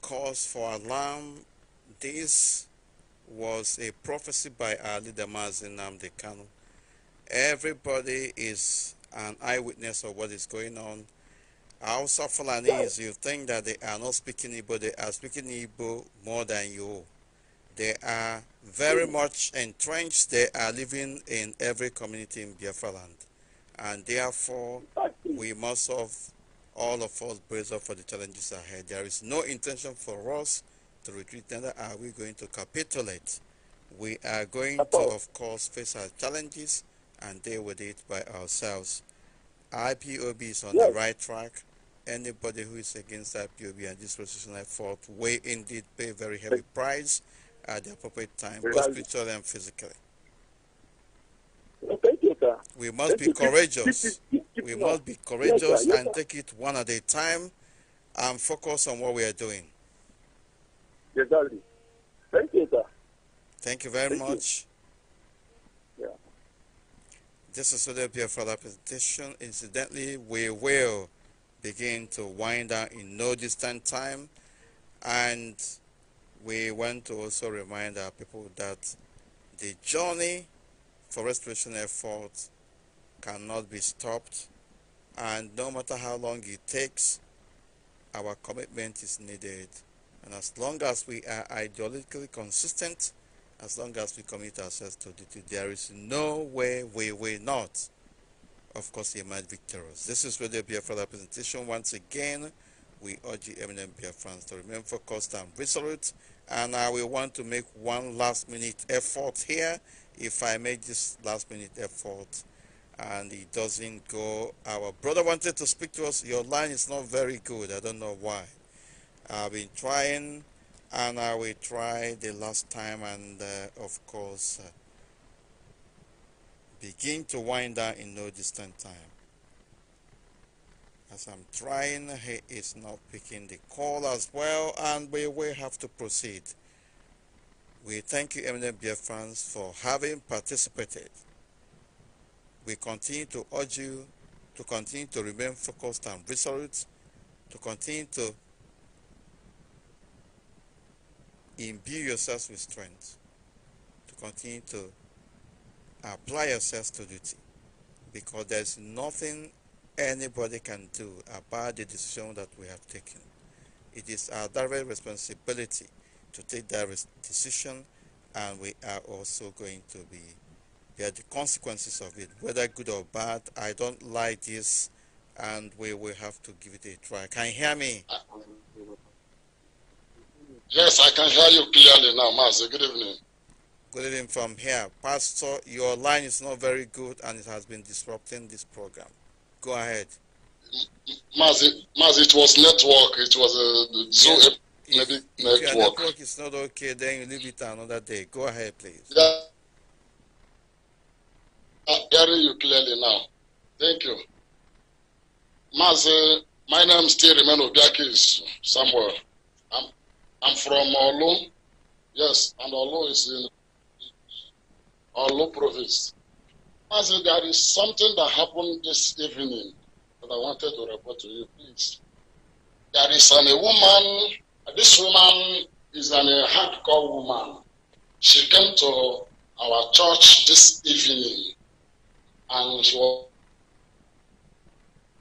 cause for alarm. This was a prophecy by Ali Damazin Namde Kanu. Everybody is an eyewitness of what is going on. Hausa Fulanis, you think that they are not speaking Igbo, they are speaking Igbo more than you. They are very much entrenched, they are living in every community in Biafra land. And therefore, we must have all of us brace up for the challenges ahead. There is no intention for us to retreat, neither are we going to capitulate. We are going to, of course, face our challenges and deal with it by ourselves. IPOB is on yes. the right track. Anybody who is against IPOB and this position I fought will indeed pay a very heavy price at the appropriate time, both spiritually and physically. We must be courageous. We must be courageous and take it one at a time and focus on what we are doing. Exactly. Thank you, sir. Thank you very Thank much. You. Yeah. This is Odebia for that presentation. Incidentally, we will begin to wind down in no distant time. And we want to also remind our people that the journey for restoration effort cannot be stopped. And no matter how long it takes, our commitment is needed and as long as we are ideologically consistent, as long as we commit ourselves to duty, there is no way we will not, of course, emerge victorious. This is Radio Biafra presentation. Once again, we urge the eminent Biafrans to remain focused and resolute. And I will want to make one last minute effort here. If I make this last minute effort and it doesn't go, our brother wanted to speak to us. Your line is not very good. I don't know why. I've been trying and I will try the last time and uh, of course uh, begin to wind down in no distant time. As I'm trying, he is not picking the call as well and we will have to proceed. We thank you Eminem Beer fans for having participated. We continue to urge you to continue to remain focused and resolute, to continue to imbue yourselves with strength to continue to apply yourselves to duty because there's nothing anybody can do about the decision that we have taken. It is our direct responsibility to take that decision and we are also going to be bear the consequences of it, whether good or bad. I don't like this and we will have to give it a try. Can you hear me? Yes, I can hear you clearly now, Master. Good evening. Good evening from here. Pastor, your line is not very good and it has been disrupting this program. Go ahead. Mas, it, it was network. It was a Zoom yes. if, network. your network is not okay, then you leave it another day. Go ahead, please. Yeah. I'm hearing you clearly now. Thank you. Mas, my name still remains Obiakis somewhere. I'm from Olu. Yes, and Olu is in Olu province. I said, there is something that happened this evening that I wanted to report to you, please. There is an, a woman, this woman is an, a hardcore woman. She came to our church this evening and she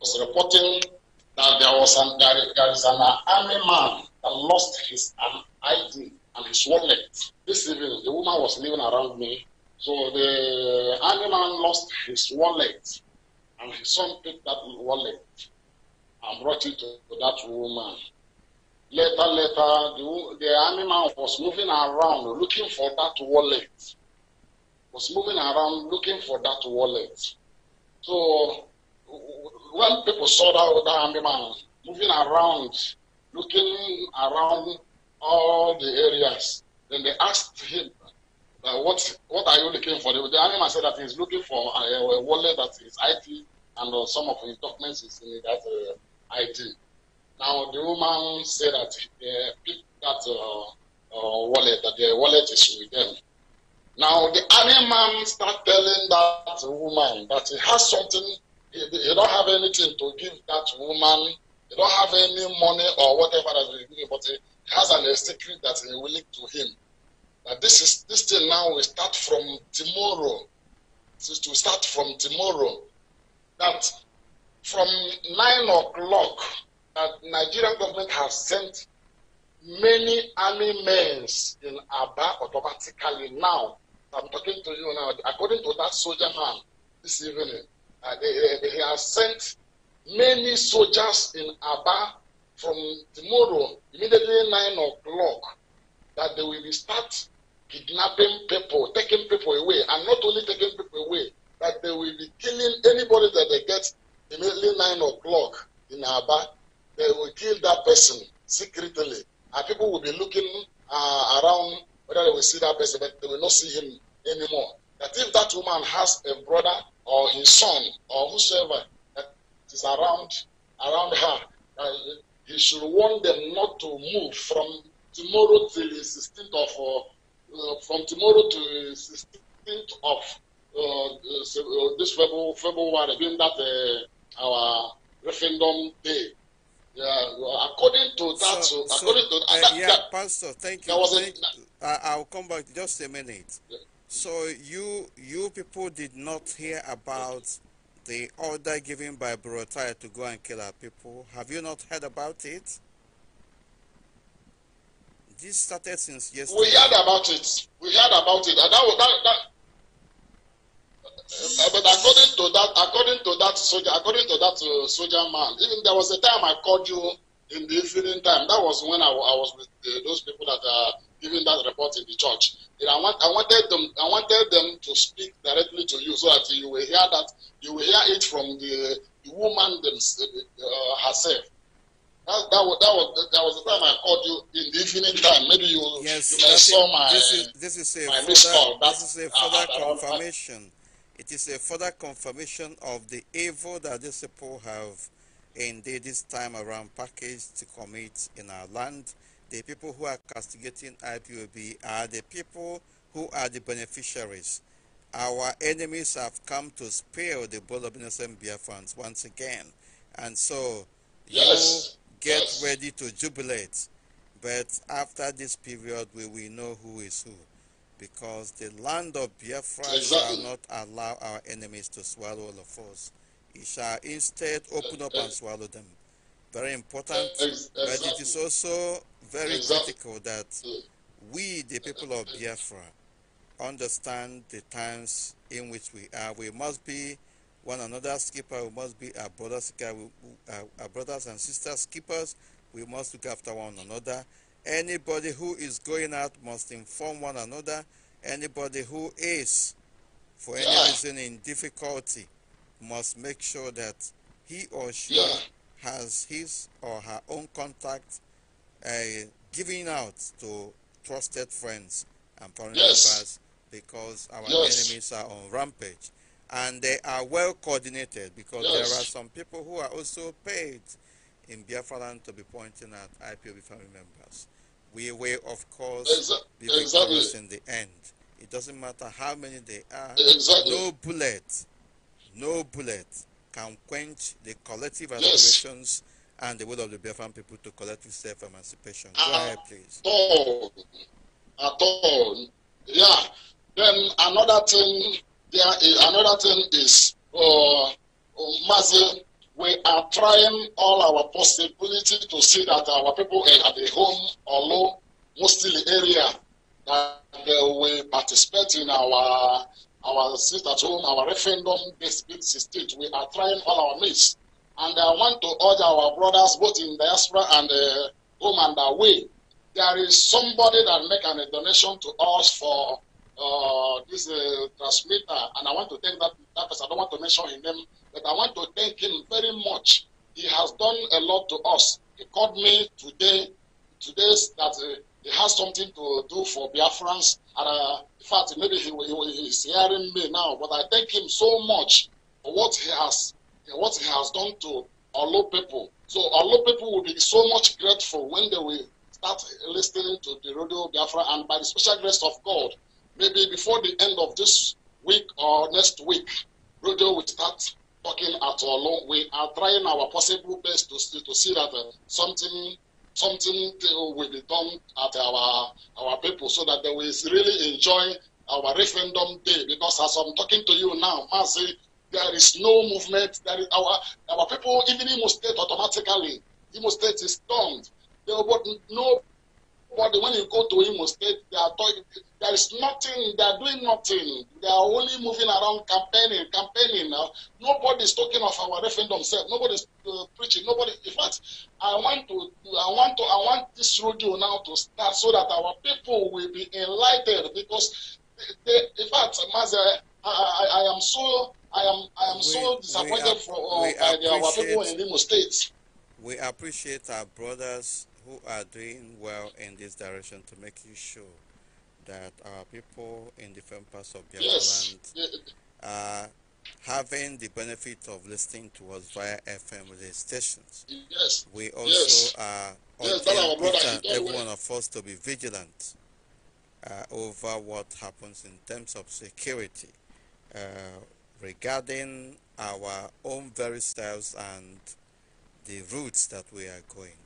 was reporting that there was an, there, there is an army man and lost his um, ID and his wallet. This evening, the woman was living around me. So the animal lost his wallet, and his son picked that wallet and brought it to that woman. Later, later, the, the animal was moving around looking for that wallet. Was moving around looking for that wallet. So when people saw that, that animal moving around looking around all the areas. Then they asked him, uh, what, what are you looking for? The, animal said that he's looking for a, a wallet that is IT and uh, some of his documents is in that uh, IT. Now the woman said that they uh, picked that uh, uh, wallet, that the wallet is with them. Now the animal started telling that woman that he has something, he, he don't have anything to give that woman don't have any money or whatever that they do, but he has an secret that he will leak to him. Now this is this thing now will start from tomorrow. This to start from tomorrow. That from nine o'clock that Nigerian government has sent many army men in Aba automatically now. I'm talking to you now. According to that soldier man this evening, uh, they, he has sent many soldiers in Aba from tomorrow, immediately 9 o'clock, that they will start kidnapping people, taking people away, and not only taking people away, that they will be killing anybody that they get immediately 9 o'clock in Aba. They will kill that person secretly. And people will be looking uh, around whether they will see that person, but they will not see him anymore. That if that woman has a brother or his son or whosoever is around around her. Uh, he should warn them not to move from tomorrow till the 16th of uh, uh, from tomorrow to the 16th of uh, uh, uh, this February, being that our referendum day. Yeah, according to that, so, so according to that, yeah, yeah, Pastor, thank you. Thank, a, I'll come back just a minute. Yeah. So you you people did not hear about the order given by Burotai to go and kill our people. Have you not heard about it? This started since yesterday. We heard about it. We heard about it. And that, was, that, that uh, but according to that, according to that soldier, according to that uh, soldier man, even there was a time I called you in the evening time. That was when I, I was with uh, those people that are even that report in the church. I, want, I, wanted them, I wanted them to speak directly to you so that you will hear that you will hear it from the, the woman uh, herself. That, that, was, that, was, that was the time I called you in the evening time. Maybe you, yes, you saw my this is, this is a further, call. this is a further uh, confirmation. It is a further confirmation of the evil that these people have indeed this time around packaged to commit in our land the people who are castigating IPOB are the people who are the beneficiaries. Our enemies have come to spill the blood of innocent Biafrans once again. And so yes. you get yes. ready to jubilate. But after this period, we will know who is who. Because the land of Biafra exactly. shall not allow our enemies to swallow all of us. It shall instead open up and swallow them. Very important. Exactly. But it is also very exactly. critical that we, the people of Biafra, understand the times in which we are. We must be one another's keeper. We must be our brothers, uh, uh, our brothers and sisters keepers. We must look after one another. Anybody who is going out must inform one another. Anybody who is, for any yeah. reason, in difficulty, must make sure that he or she yeah. has his or her own contact uh, giving out to trusted friends and family yes. members because our yes. enemies are on rampage. And they are well coordinated because yes. there are some people who are also paid in Biafra land to be pointing at IPOB family members. We will, of course, exactly. be victorious in the end. It doesn't matter how many they are. Exactly. No bullet, no bullet can quench the collective aspirations and the will of the Biafran people to collective self-emancipation. Go at ah, ahead, please. All. At ah, all. Yeah. Then another thing, there is, another thing is, uh, Mazi, we are trying all our possibility to see that our people at the home or low, mostly area, that uh, we participate in our our sit at home, our referendum based state. We are trying all our means and I want to urge our brothers, both in diaspora and uh, home and away, there is somebody that make an, a donation to us for uh, this uh, transmitter, and I want to thank that, that person. I don't want to mention his name, but I want to thank him very much. He has done a lot to us. He called me today, today that uh, he has something to do for Biafrans, and uh, in fact, maybe he, he, he's hearing me now, but I thank him so much for what he has what he has done to Olo people. So Olo people will be so much grateful when they will start listening to the radio Biafra and by the special grace of God, maybe before the end of this week or next week, radio will start talking at Olo. We are trying our possible best to, to see that uh, something something will be done at our our people so that they will really enjoy our referendum day because as I'm talking to you now, Mazi there is no movement. There is our our people, even Imo State, automatically Imo State is stunned. There, was no, but when you go to Imo State, they are talking. There is nothing. They are doing nothing. They are only moving around campaigning, campaigning. Now nobody is talking of our referendum self. Nobody is uh, preaching. Nobody. In fact, I want to, I want to, I want this radio now to start so that our people will be enlightened because. They, they, in fact, Master, I, I, I am so I am I am we, so disappointed for uh, by the, our people in Imo State. We appreciate our brothers who are doing well in this direction to making sure that our people in different parts of the yes. land are having the benefit of listening to us via FM stations. Yes. We also yes. are yes, brother, every one of us to be vigilant uh, over what happens in terms of security uh, regarding our own very selves and the routes that we are going.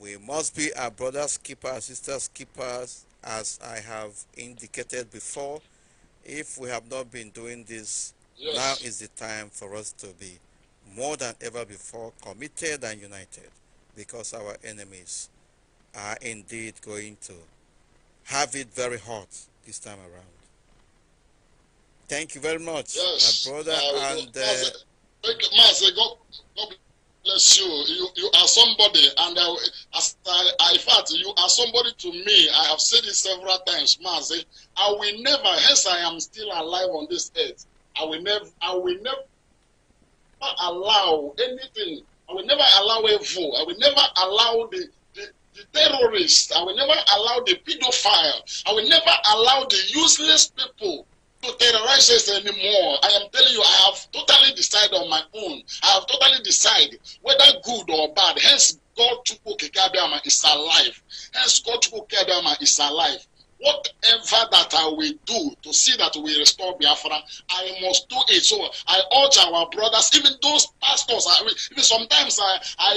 We must be our brother's keeper, our sister's keepers, as I have indicated before. If we have not been doing this, yes. now is the time for us to be more than ever before committed and united because our enemies are indeed going to have it very hot this time around. Thank you very much, yes, my brother. Uh, and Master, uh, Master, God, God bless you. You you are somebody, and I, as I, I, in fact, you are somebody to me. I have said it several times, Master. I will never, hence I am still alive on this earth. I will never, I will never allow anything. I will never allow evil. I will never allow the the terrorist. I will never allow the pedophile. I will never allow the useless people to terrorize us anymore. I am telling you, I have totally decided on my own. I have totally decided whether good or bad. Hence, God Chukwu Kekabiama is alive. Hence, God Chukwu Kekabiama is alive. whatever that I will do to see that we restore Biafra, I must do it. So I urge our brothers, even those pastors. I, even sometimes I, I,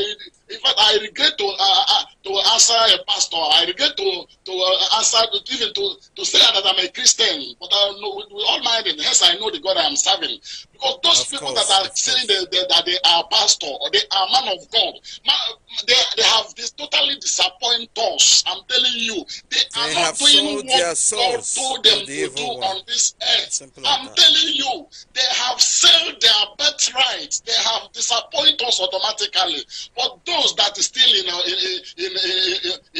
in fact, I regret to uh, uh to answer a pastor. I regret to to uh, answer even to to say that I'm a Christian. But I uh, know, with, with all my mind, hence I know the God I am serving. Because those of people course, that are saying they, that they are pastor or they are man of God, they, they have this totally disappoint us. I'm telling you, they, are not doing what God told them to, do one. on this earth. I'm telling you, they have sold their birthright. They have disappointed us automatically. But those that are still in, in, in,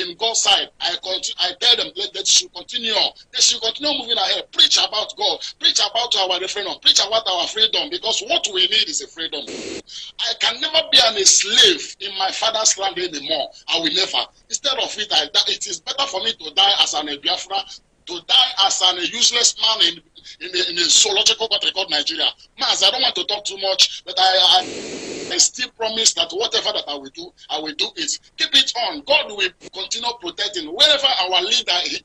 in, in God's side, I, continue, I tell them that they should continue on. They should continue moving ahead. Preach about God. Preach about our referendum. Preach about our freedom freedom because what we need is a freedom. I can never be an, a slave in my father's land anymore. I will never. Instead of it, I, it is better for me to die as an Biafra, to die as an, a useless man in in the, in the zoological country called Nigeria. Mas, I don't want to talk too much, but I, I, I still promise that whatever that I will do, I will do it. Keep it on. God will continue protecting wherever our leader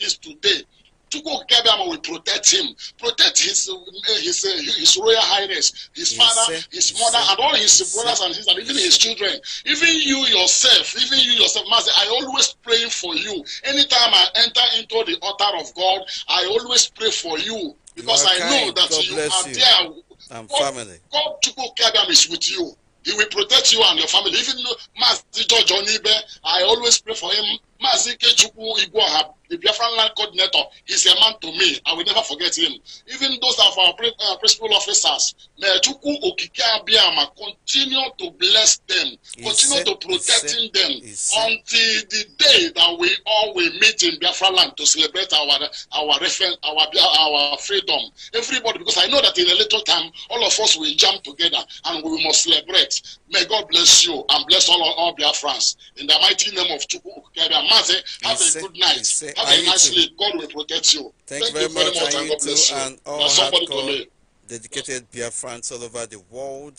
is today. to go get him protect him, protect his his his royal highness, his father, his mother, and all his yes, brothers sir. and sisters, even his children, even you yourself, even you yourself, Master. I always pray for you. Anytime I enter into the altar of God, I always pray for you because I know that God you are you. there. And God, family. God to go care is with you. He will protect you and your family. Even Master George Onibe, I always pray for him Mazi Kechukwu Igwoha, the Biafran land coordinator, he's a man to me. I will never forget him. Even those of our uh, principal officers, Mechukwu Okike Abiyama, continue to bless them, continue to protect them until the day that we all will meet in Biafra land to celebrate our our our our freedom. Everybody, because I know that in a little time, all of us will jump together and we must celebrate. May God bless you and bless all, all Biafrans. In the mighty name of Chukwu Okike have a, have a good night. have a nice sleep. God will protect you. Thank, Thank you very much. much and God bless you. And all oh, hardcore, dedicated Biafrans all over the world.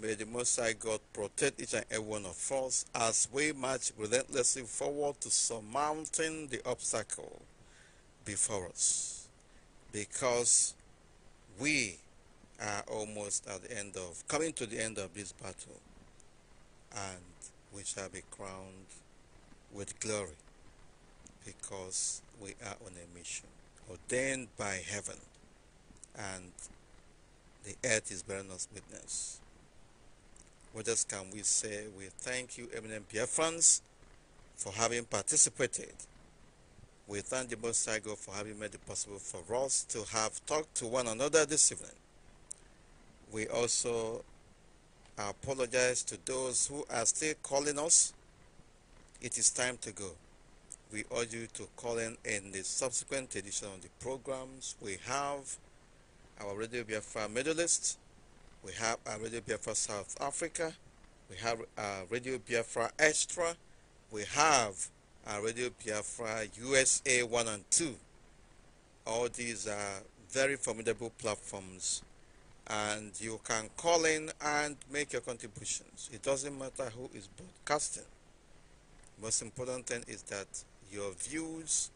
May the Most High God protect each and every one of us as we march relentlessly forward to surmounting the obstacle before us. Because we are almost at the end of, coming to the end of this battle. And we shall be crowned with glory because we are on a mission ordained by heaven and the earth is bearing us witness. What else can we say? We thank you, Pierre France, for having participated. We thank the Most High God for having made it possible for us to have talked to one another this evening. We also apologize to those who are still calling us it is time to go. We urge you to call in in the subsequent edition of the programs. We have our Radio Biafra Middle East, we have our Radio Biafra South Africa, we have our Radio Biafra Extra, we have our Radio Biafra USA 1 and 2. All these are very formidable platforms and you can call in and make your contributions. It doesn't matter who is broadcasting most important thing is that your views,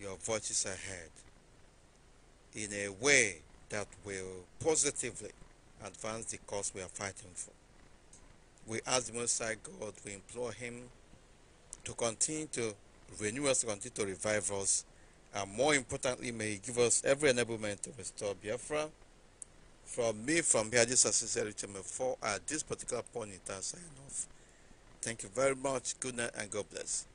your voices are heard in a way that will positively advance the cause we are fighting for. We ask the Most High God, we implore Him to continue to renew us, to continue to revive us, and more importantly, may He give us every enablement to restore Biafra. From me, from here, this is Sincerity 4 at this particular point in time, sign off. Thank you very much. Good night and God bless.